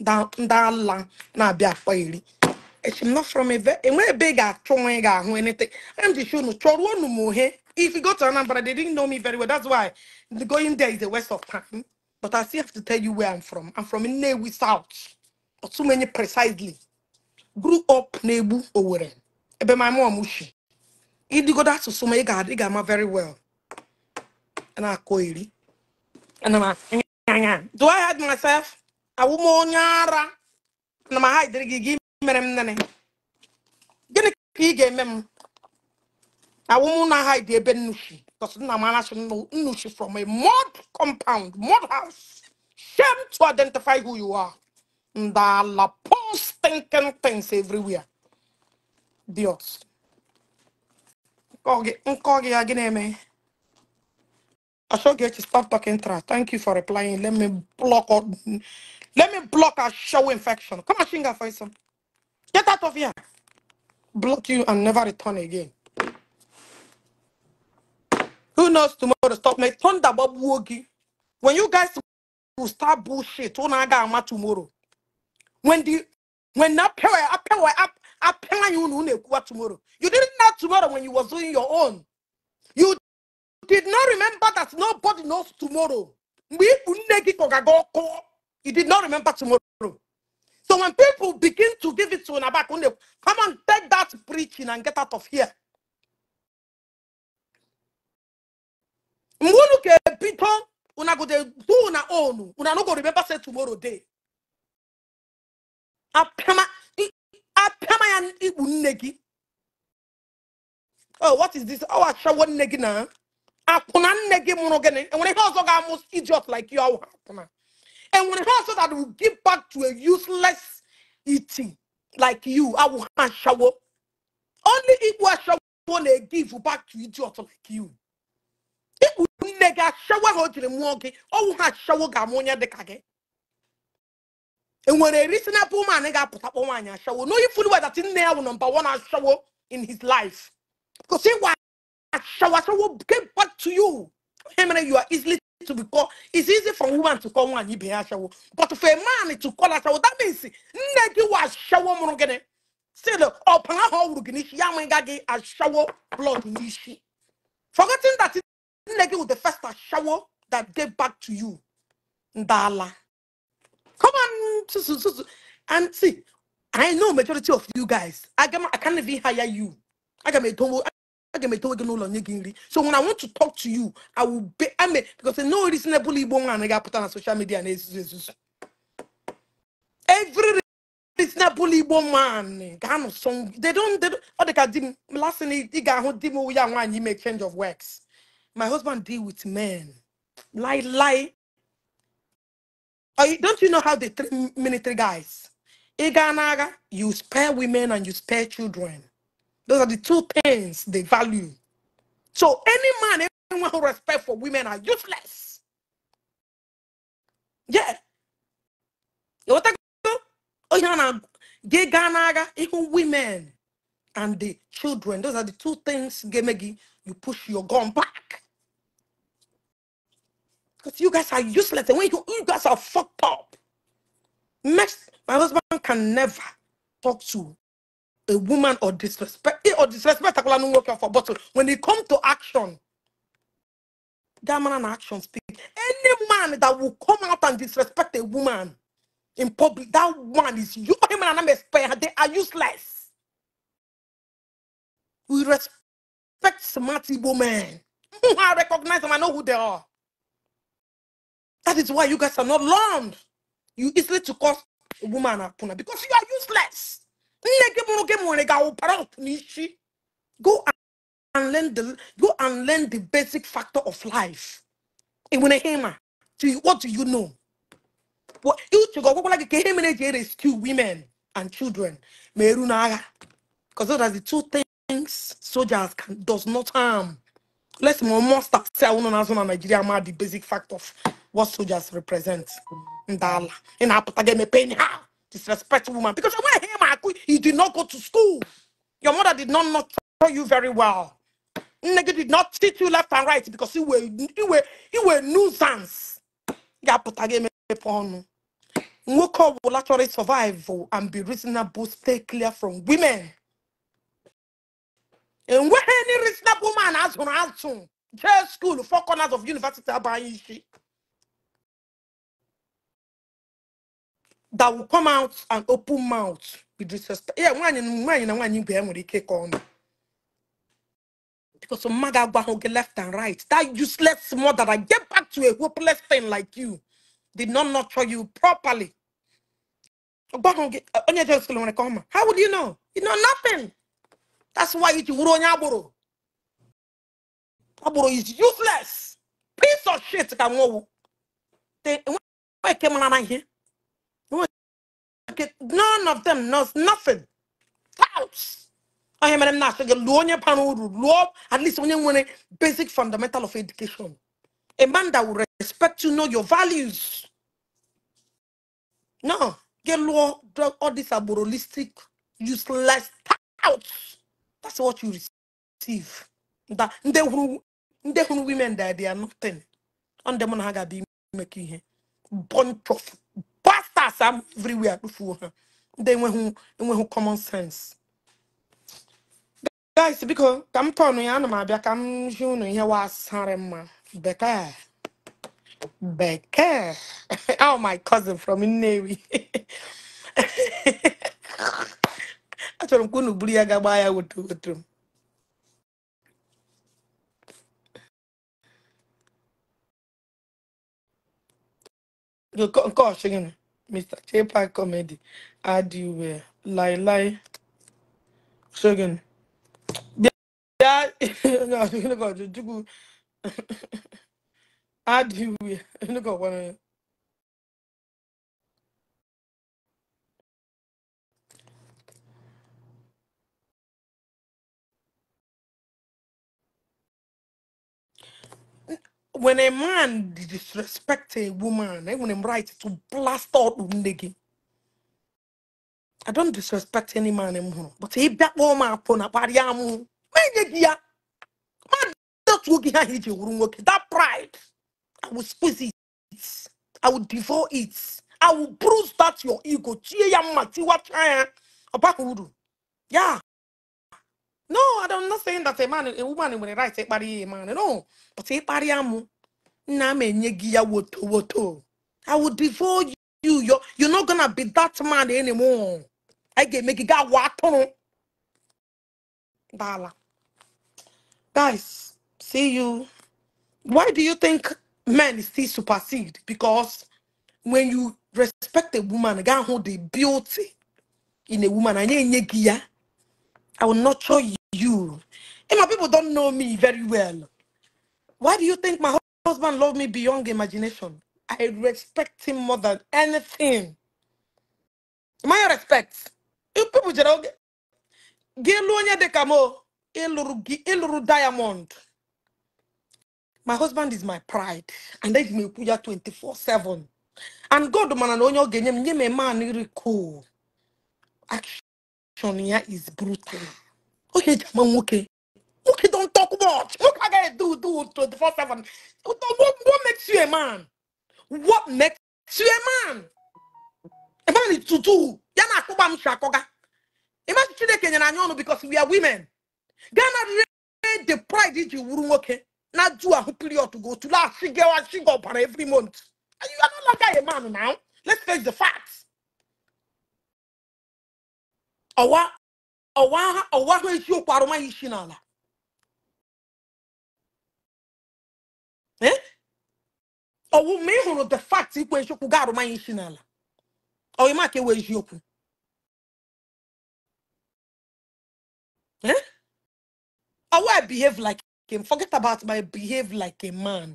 Speaker 1: Ndala. Nabia Fairy. i It's not from a very big strong or anything. I'm just showing Chorwa no more. If you go to Anambra, they didn't know me very well. That's why the going there is a waste of time. But I still have to tell you where I'm from. I'm from Inewi South. but too many precisely. Grew up Nebu Oweren. Ebe my mom ushi ịdịgodo asụsụ to ị ga-adị ga-ama very well na-akọ iri do I hide myself awụ m onye ara ana m haidịrị gị gị mere m nne gịnị ka ị ga-eme m awụ m na haidi ebe nnuchi because nna m anachi Nushi from a mud compound mud house shame to identify who you are ndala post thinking things everywhere dios I should get you stop talking trash. Thank you for replying. Let me block out. Let me block a show infection. Come on, Shinga Faisal. Get out of here. Block you and never return again. Who knows tomorrow? to Stop me. Thunder Bob Wogi. When you guys will start bullshit, Onaga Ama tomorrow. When the when na pewe, apewe, apewe, you know, tomorrow. You didn't tomorrow when you were doing your own. You did not remember that nobody knows tomorrow. You did not remember tomorrow. So when people begin to give it to Nabakunde, come and take that preaching and get out of here. mgbe unu ga-ebido una go dey do una own una no go remember say tomorrow day apịama ya ikpu nne gị oh what is this ọ achawo nne gị na akwụna nne gị mụrụ enwere ihe ọzọ ga most idiot like you ọwụ akwụna enwere ihe also that will give back to a useless iti like you awụ ha achawo only igbu achawo na-egive back to idiot like you ikpu nne gị achawo ha o jiri mụọ gị ọwụ ha achawo ga-amụ dịka gị enwere reasonable man ga-apụtakpọ nwaanyị achawo no ifulu wedat ya wụ nọmba wan in his life Because say what shower so get back to you. Hemene, you are easily to be called. It's easy for woman to call one be shower. But for a man to call a shower, that means negative was shower monogene. Say the open a hole ruginish yamangagi a shower blood nishi. Forgetting that it negi with the first shower that get back to you. Ndala. Come on, and see, I know majority of you guys. I can I can't even hire you aga m etonwo aga m etonwego n'ụlọ nye gị nri so when i want to talk to you i will be i mean because no reasonable igbo nwa anaghị apụta na social media na ezuzu every it's not bully woman. ano song they don't they don't ọ dị ka di m last thing ị ga-ahụ di m ya nwaanyị ime change of works my husband deal with men lie lie don't you know how the treat military guys ị gaa you spare women and you spare children those are the two things they value. So any man, anyone who respect for women are useless. Yeah. You Oh Even women and the children, those are the two things Gemegi, you push your gun back. Because you guys are useless. And when you, you guys are fucked up, next, my husband can never talk to a woman or disrespect eh, or disrespect for bottle. When it comes to action, that man and action speak. Any man that will come out and disrespect a woman in public, that one is you him and I'm expert, they are useless. We respect smart women. Hmm, I recognize them, I know who they are. That is why you guys are not learned. You easily to cause a woman a puna because
Speaker 2: you are useless.
Speaker 1: Nne gị mụrụ gị ga-awụpara ọfụ n'isi. Go and learn the go and learn the basic factor of life. Ị nwere hema. Do what do you know? What uche gị ọgwụgwụla gị ka ihe mere eji rescue women and children ma eru Because those are the two things soldiers can does not harm. Let's more must say unu na-azụ na Nigeria ma the basic fact of what soldiers represent. Ndala. Ị na-apụta gị emepe ha. Disrespect woman because you're quit. did not go to school. Your mother did not nurture you very well. Nigga did not teach you left and right because you were he were you were nuisance. Ya pụta gị emepe We call ọ bụla survive and be reasonable stay clear from women. And when any reasonable man has an answer, jail school four corners of university abaghị That will come out and open mouth we disrespect yeah nwaanyị na nwaanyị na because mmadụ agwaghị gị left and right that useless mother that get back to a hopeless thing like you did not nurture you properly how would you know you know nothing that's why it's wuru onye agboro is useless piece of shit ka nwowu enweghị came on na ihe market, none of them knows nothing. House. I am not sure. Luonya panu luo. At least when you want a basic fundamental of education. A man that will respect you, know your values. No, get law, drug, all this aborolistic, useless out. That's what you receive. That they who they who women that they are nothing. And them on haga be making bunch of after everywhere akpụfuo ha ndị enweghị enweghị common sense guys biko ka m tọnụ ya ana m abịa ka m ji unu ihe wasarị mma bekee bekee oh my cousin from Nnewi achọrọ m ka unu buru ya ga ya woto m Mr. J-Pack Comedy, Adiwe, Lai Lai, Shogun. Yeah, no, you know, you, Adiwe, look at one When a man disrespect a woman, I want him right to blast out Undegi. I don't disrespect any man anymore. Eh, but if that woman upon a pariamu. Eh, eh, that pride, I will squeeze it. I will devour it. I will bruise that your ego. Chia ya matiwa Yeah. No, I don't not saying that a man, a woman when writes, take body man. No, but a body amu. Na me nyegi ya woto I will divorce you. You're you're not gonna be that man anymore. I get make it got water. Dala. Guys, see you. Why do you think men still supersede? Because when you respect a woman, guy hold the beauty in a woman, and you I will not show you you. And my people don't know me very well. Why do you think my husband loved me beyond imagination? I respect him more than anything. My respect. You people jere oge. Gelu onye dị o. diamond. My husband is my pride. And eji me ekwu 24-7. And God mana na onye o nye m a man really Action ya is brutal. ohe eji ama nwoke nwoke don talk much nwoke agaghị do do 24/7 what makes you a man what makes you a man a man is to do ya na akpụgba m si akọga imagine chineke nyere anyị ọnụ because we are women gana na rere the pride iji wuru nwoke na du ahụ period go tụle asị gị asị gị ọbara every month you are no longer a man now let's face the facts ọwa ọwa ahụ eziokwu arụmaghị isi n'ala eh? ọwụ ma ị hụrụ the fact ikwu eziokwu ga arụmaghị isi n'ala ọyịma ka ewe eziokwu eh? ọwụ I behave like him forget about my behave like a man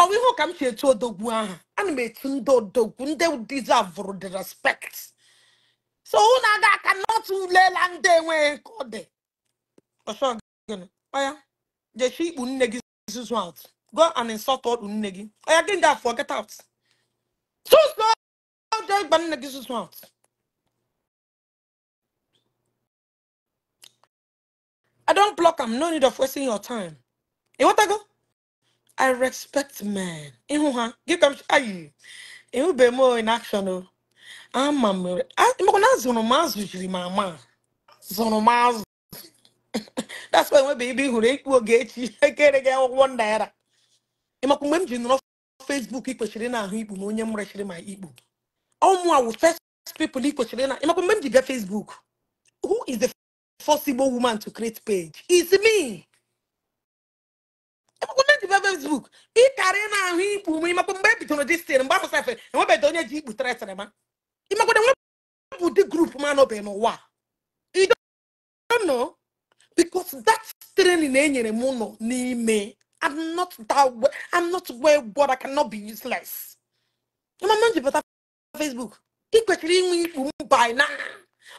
Speaker 1: ọwụ ihe ụka m si etu odogwu aha ana m etu ndị odogwu ndị deserve the respect so ụ aga aka atụlela ndị enweghị kọde ọsọ gịnị ọya jechi ikpu nne gị zuzu out go and insult ọkpụ nne gị ọya gị ga afọ get out susu ịgba nne gị zuzu out I don't block am no need of wasting your time ịghọtago I respect men ịhụ ha gị ka m ayi ịhụbeghị m in action o ama meu. Ah, na zonomazo jiri mama. Zonomazo. That's why meu baby who rake will get you. I get again one naira. Ima kumwe mji nuna Facebook e postei na ahu ibu. Mwenye mura shiri ma ibu. Au mwa wu first people e postei na. Ima kumwe mji bia Facebook. Who is the first woman to create page? is me. e be Facebook. Ị karịa na ahụ ikpu m ịmakwa mgbe e bidoro dis tin mgbe eu safe enwebeghị onye ji ikpu né ma ịmakwada nwebụ ụdị grup m anọbeghị n'ụwa nọ because that training enyere m nọ n'ime I'm not that way. I'm not well but I cannot be useless. Ịmama m ji pụta Facebook ị kwesịrị inwe ikpu by now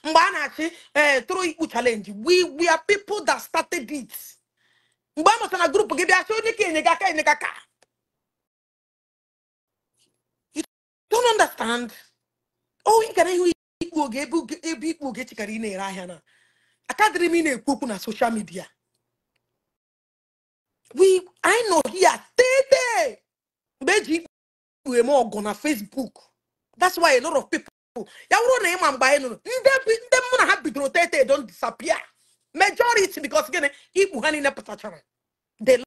Speaker 1: mgbe eh, a na-achị ee tụrụ ikpu challenge we we are people that started it. mgbe a mụtara na grupu gị bịa chọọ onye ka enye gị aka enye gị You don't understand. ohi gara ihu ikpu oge ebe ikpu oge chekara ị na-ere ahịa na akadịrị m ị na-ekwu okwu na soshal midia we anyị nọ here tete mgbe eji ikpu m ọgụ na Facebook that's why a lot of people ya wụrụ na ịma mgbe anyị nụrụ ndị mụ na ha bidoro tete don disappear majority because gịnị ikpu ha niile pụtachara they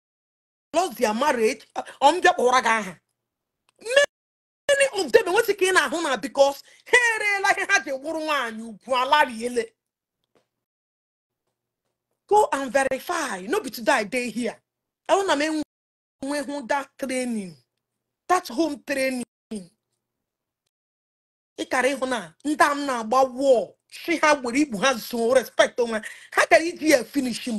Speaker 1: lost their marriage ọmbịa kpọra gị aha ụmụdebe nwetị ka ị na-ahụ na bikos ha ereela ihe ha ji gwụrụ nwaanyị ugwu ile. go and verify no be today i dey here ọ na m enweghị that training that home training ịkara ịhụ na ndị a m na-agba wọl si ha gbere igbu ha zo respect onwe ha kara iji ya finish m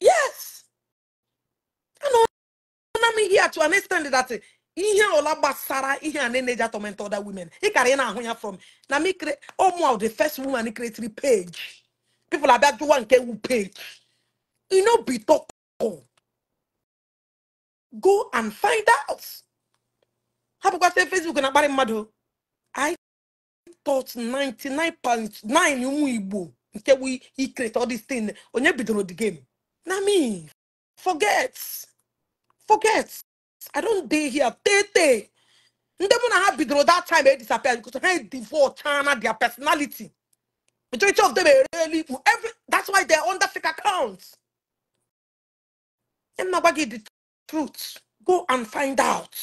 Speaker 1: yes am here to understand that ihe ọla gbasara ihe a na-eneji atọment other women ị kara ị na-ahụ ya from na m ụmụ the first woman creatry page people abịa jụwa nke wu page ino bitoko go and find out hapụkwasị facebook na-akparị mmadụ i thought 99.9 ụmụ igbo nke wu ikrete all onye bidoro the game na me forget forget i don't day here tey tey ndị mụ na ha that time They disappear because they divorce china their personality majority of them ereli ikpu every that's why they're under fake accounts And now agwa gị the truth go and find out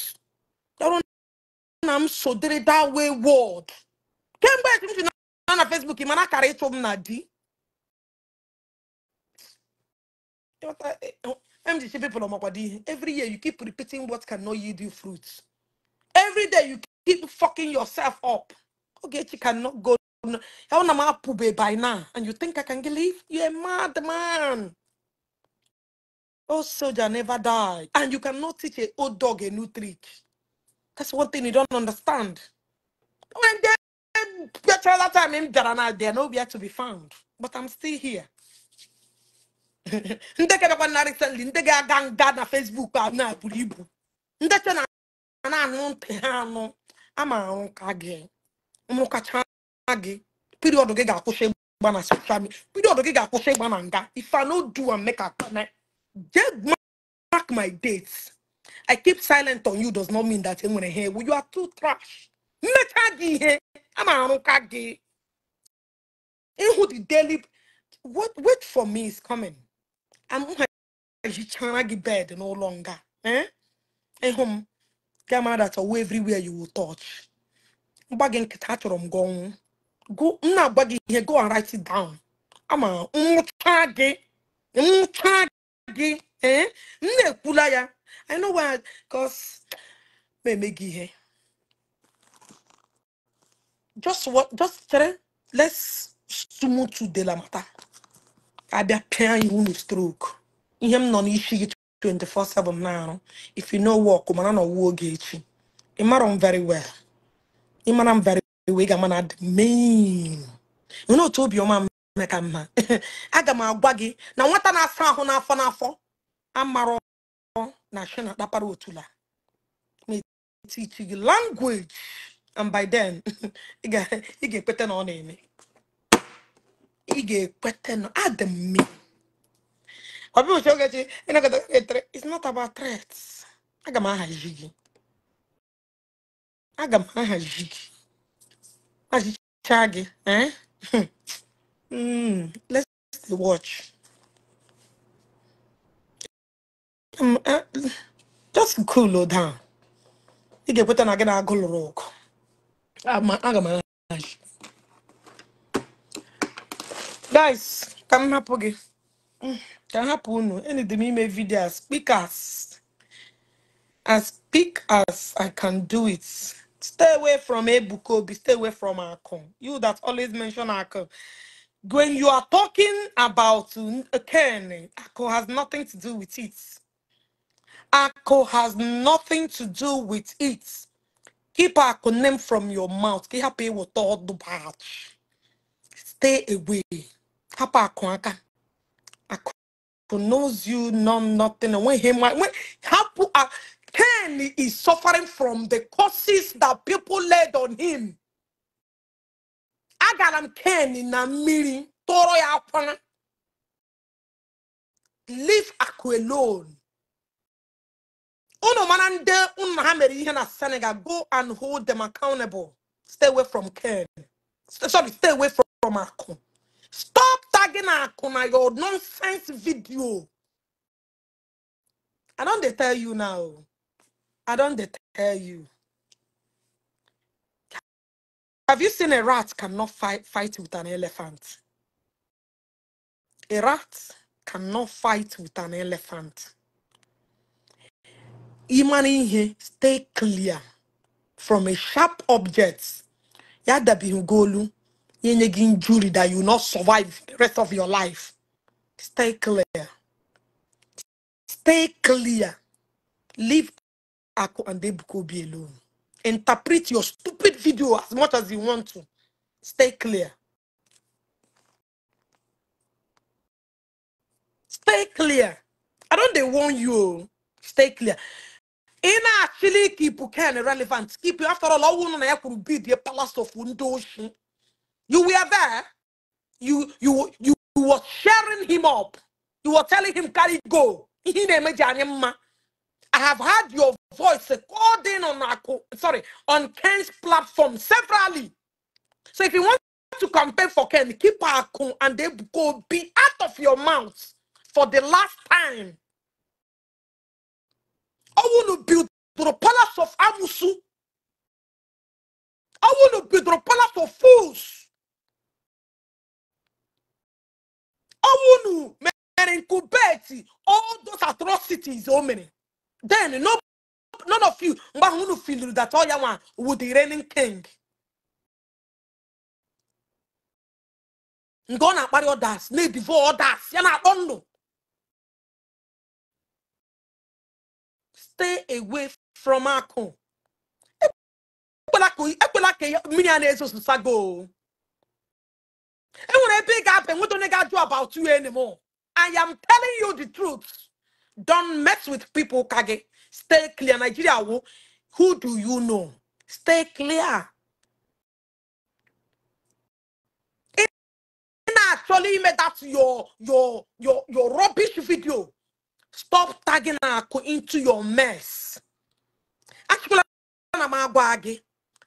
Speaker 1: I'm so sodere that way world kemgbe etu m ji na na facebook mana akara ịchụ m na di MG people on Makwadi, every year you keep repeating what cannot yield you fruits. Every day you keep fucking yourself up. Okay, you cannot go. by now? And you think I can leave? You're a mad man. Oh, soldier never die. And you cannot teach an old dog a new trick. That's one thing you don't understand. When they get all that time in Darana, they're nowhere to be found. But I'm still here. ndị kebekwa na recently ndị ga-aga nga na Facebook a na ibu ndị che na na-anụ ntị ha anụ ama ahụ ka gị mụkacha gị piriọdụ gị ga-akwụsị ịgba na soshal midia piriọdụ gị ga-akwụsị ịgba na nga if I no do and make akpana just mark my date. I keep silent on you does not mean that enwere ha ewu you are too trash mmecha gị ihe ama ahụ ka gị ịhụ the daily what wait for me is coming hichara gị bed n'ụlọ nga ịhụ m gamara that owe everywhere you will touch mgba gị nkịta achọrọ m gị ọnwụ nna na-agba gị ihe go and down ama nwụcha gị nwụcha gị eh? m na-ekwula ya i know why cause ma eme gị ihe just what just chere let's sumu to de la mata abịa pịa iwu na strok ihe m nọ n'isi gị 24/7 na-arụ if you no work mana na ọwụ gị echi ị mara m very well ị mara m very well ị ga-ama na adị main nwere otu obiọma m mee ka mma aga m agwa gị na nwata na-asa ahụ n'afọ n'afọ amara na shina kpakpara otula na-etichi gị language and by then ị ga-ekweta na ọ na-eme ị ga-ekweta adị m mme ọ bụghị etere it's not about threats aga m ahazi gị aga m ahazi gị achịcha gị eh hmm, let's watch um, eh, just cool down ị ga-ekweta na gị na agụ lụrụ ọgụ aga m ahazi guys can m hapụ gị Mm, ka m hapụ unu enidi m speak as as speak as i can do it stay away from ebuka obi stay away from Akon. you that always mention Akon when you are talking about uh, Ken, Akko has nothing to do with it. Akko has nothing to do with it. Keep Akko name from your mouth. Stay away. hapụ akụ aka akụ knows you know nothing when he when hapụ ken is suffering from the causes that people laid on him agara m na mmiri tụọrọ ya akwana leave akụ alone ụlọ mara ndị unu ha mere ihe na Senegal go and hold them accountable stay away from ken sorry stay away from, from akụ Stop tagging my your nonsense video. I don't they tell you now. I don't they tell you. Have you seen a rat cannot fight fight with an elephant? A rat cannot fight with an elephant. Imani stay clear from a sharp object. Yada bihugolu any injury that you will not survive the rest of your life. Stay clear. Stay clear. Leave Ako and Debukobi alone. Interpret your stupid video as much as you want to. Stay clear. Stay clear. I don't they warn you. Oh. Stay clear. In actually keep can relevant. Keep you after all, I want to bid the palace of Wundoshi. You were there. You you you were sharing him up. You were telling him, carry go. I have heard your voice according on on sorry on Ken's platform severally. So if you want to campaign for Ken, keep Akun and they go be out of your mouth for the last time. I want to build
Speaker 3: the palace of Amusu. I want to build the palace of fools. ọnwụ nu
Speaker 1: mere nkubeti all those atrocities o mere then no none of you mgbe ahụ unu filiri that ọya oh, nwa wu the reigning king
Speaker 3: nke ọ na akpari others na before others ya na-akpọ ndụ stay away
Speaker 1: from akụ ekwela ka mmiri a na-ezozusago enwere ebe ị ga-apụ enweta onye ga-ajụ about you anymore i am telling you the truth don't mess with people ka gị stay clear nigeria wo who do you know stay clear ị na-achọla ime that your your your your rubbish video stop tagging akụ into your mess achịkwala na m agwa gị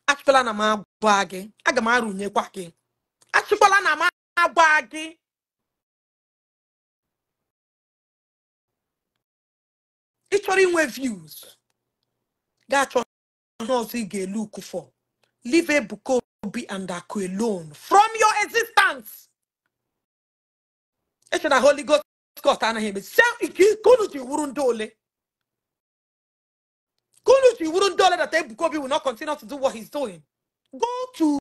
Speaker 1: achịkwala na m agwa gị aga m arụnyekwa gị achịkwala na m agba gị ị chọrọ inwe views ga ihe ọzọ ị ga-elu ukufọ leave Ebuka Obi and Aku alone from your existence eche na Holy Ghost Scott anaghị eme kunu ji wuru ndị ole kunu ji wuru ndị ole that Ebuka Obi will not continue to do what he's doing go to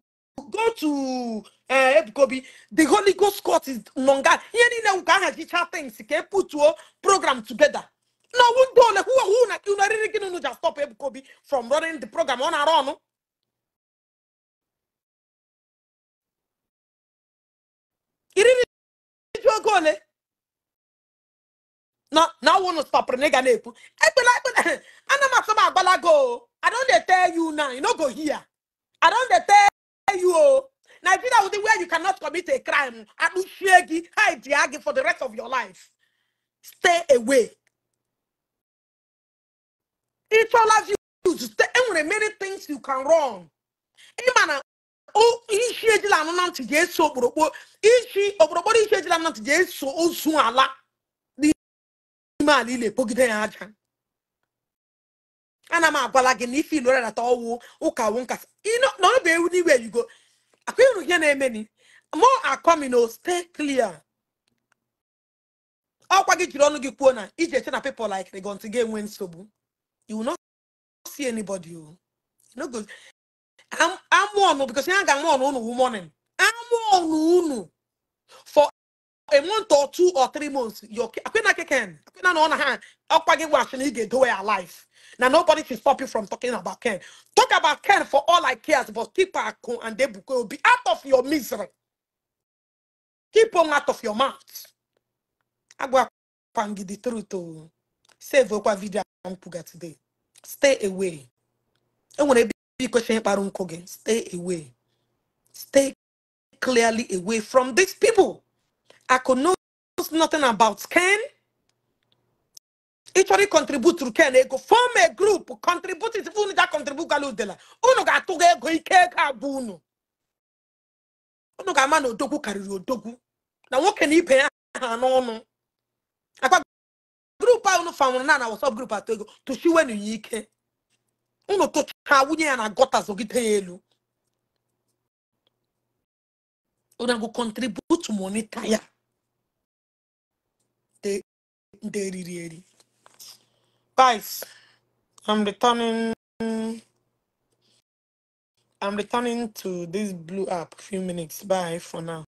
Speaker 1: go to ee eh, ebukobi the holy ghost court is nonga ihe niile nwụka ahajicha things ka eputuo program together na ọwụ ndị ole hụ na unu eriri gị unu ji stop
Speaker 3: ebukobi from running the program ọ na-arụ ọnụ iriri ju oge ole
Speaker 1: na ọwụ nụ stọpụrụ na ịga na-ekwu ekpela ekpela ana m atụ m agbalago I don't dey tell you now you no go hear I don't dey tell Nigeria will be where you cannot commit a crime. Adusiegi, Haidiagi for the rest of your life. Stay away. It's all of you. Stay. There many things you can wrong. Imana, oh, ishi ejila anuna nti jesu Ishi ishi ejila ozu ala. N'ime ala ile pogide ya aja. Ana agwala gị na ife ilore na ụka wụ bụ ewu n'iwe go. akụiru ihe na-emeni eme ni akọmi akọmino oh, stay clear ọkwa gị jiri ọnụ gị kwuo na iji eche na people like rigonti ga-enwe nsogbu you no see anybody o oh. no go amụ ọnụ oh, because ya ga-amụ ọnụ unu morning amụ ọnụ unu for a month or two or three months akwena keken akwena na ọ na ha ọkwa gị gwachị na ị ga-edowe ya life Now nobody should stop you from talking about Ken. Talk about Ken for all I care, but keep Akon and they will be out of your misery. Keep them out of your mouth. Agwa give the truth to oh. save okwa video mpuga today. Stay away. want to be questioning about gị. Stay away. Stay clearly away from these people. I could know nothing about Ken. ị chọrọ ịkọntribut ken ego fọm e grup kọntribut ife unu ga kọntributgala udela unu ga-atụga ego ike ego abụ unu unu ga-ama na odogwu karịrị odogwu na nwoke na ibe ya ha n'ọnụ akwa grup a unu fanwụrụ na na wasap grup atọ ego tụchiwenu ya ike unu tụcha nwunye ya na gọta zogide ya elu unu agụ kọntribut monita ya nde riri eri Guys, I'm returning. I'm returning to this blue app. Few
Speaker 3: minutes. Bye for now.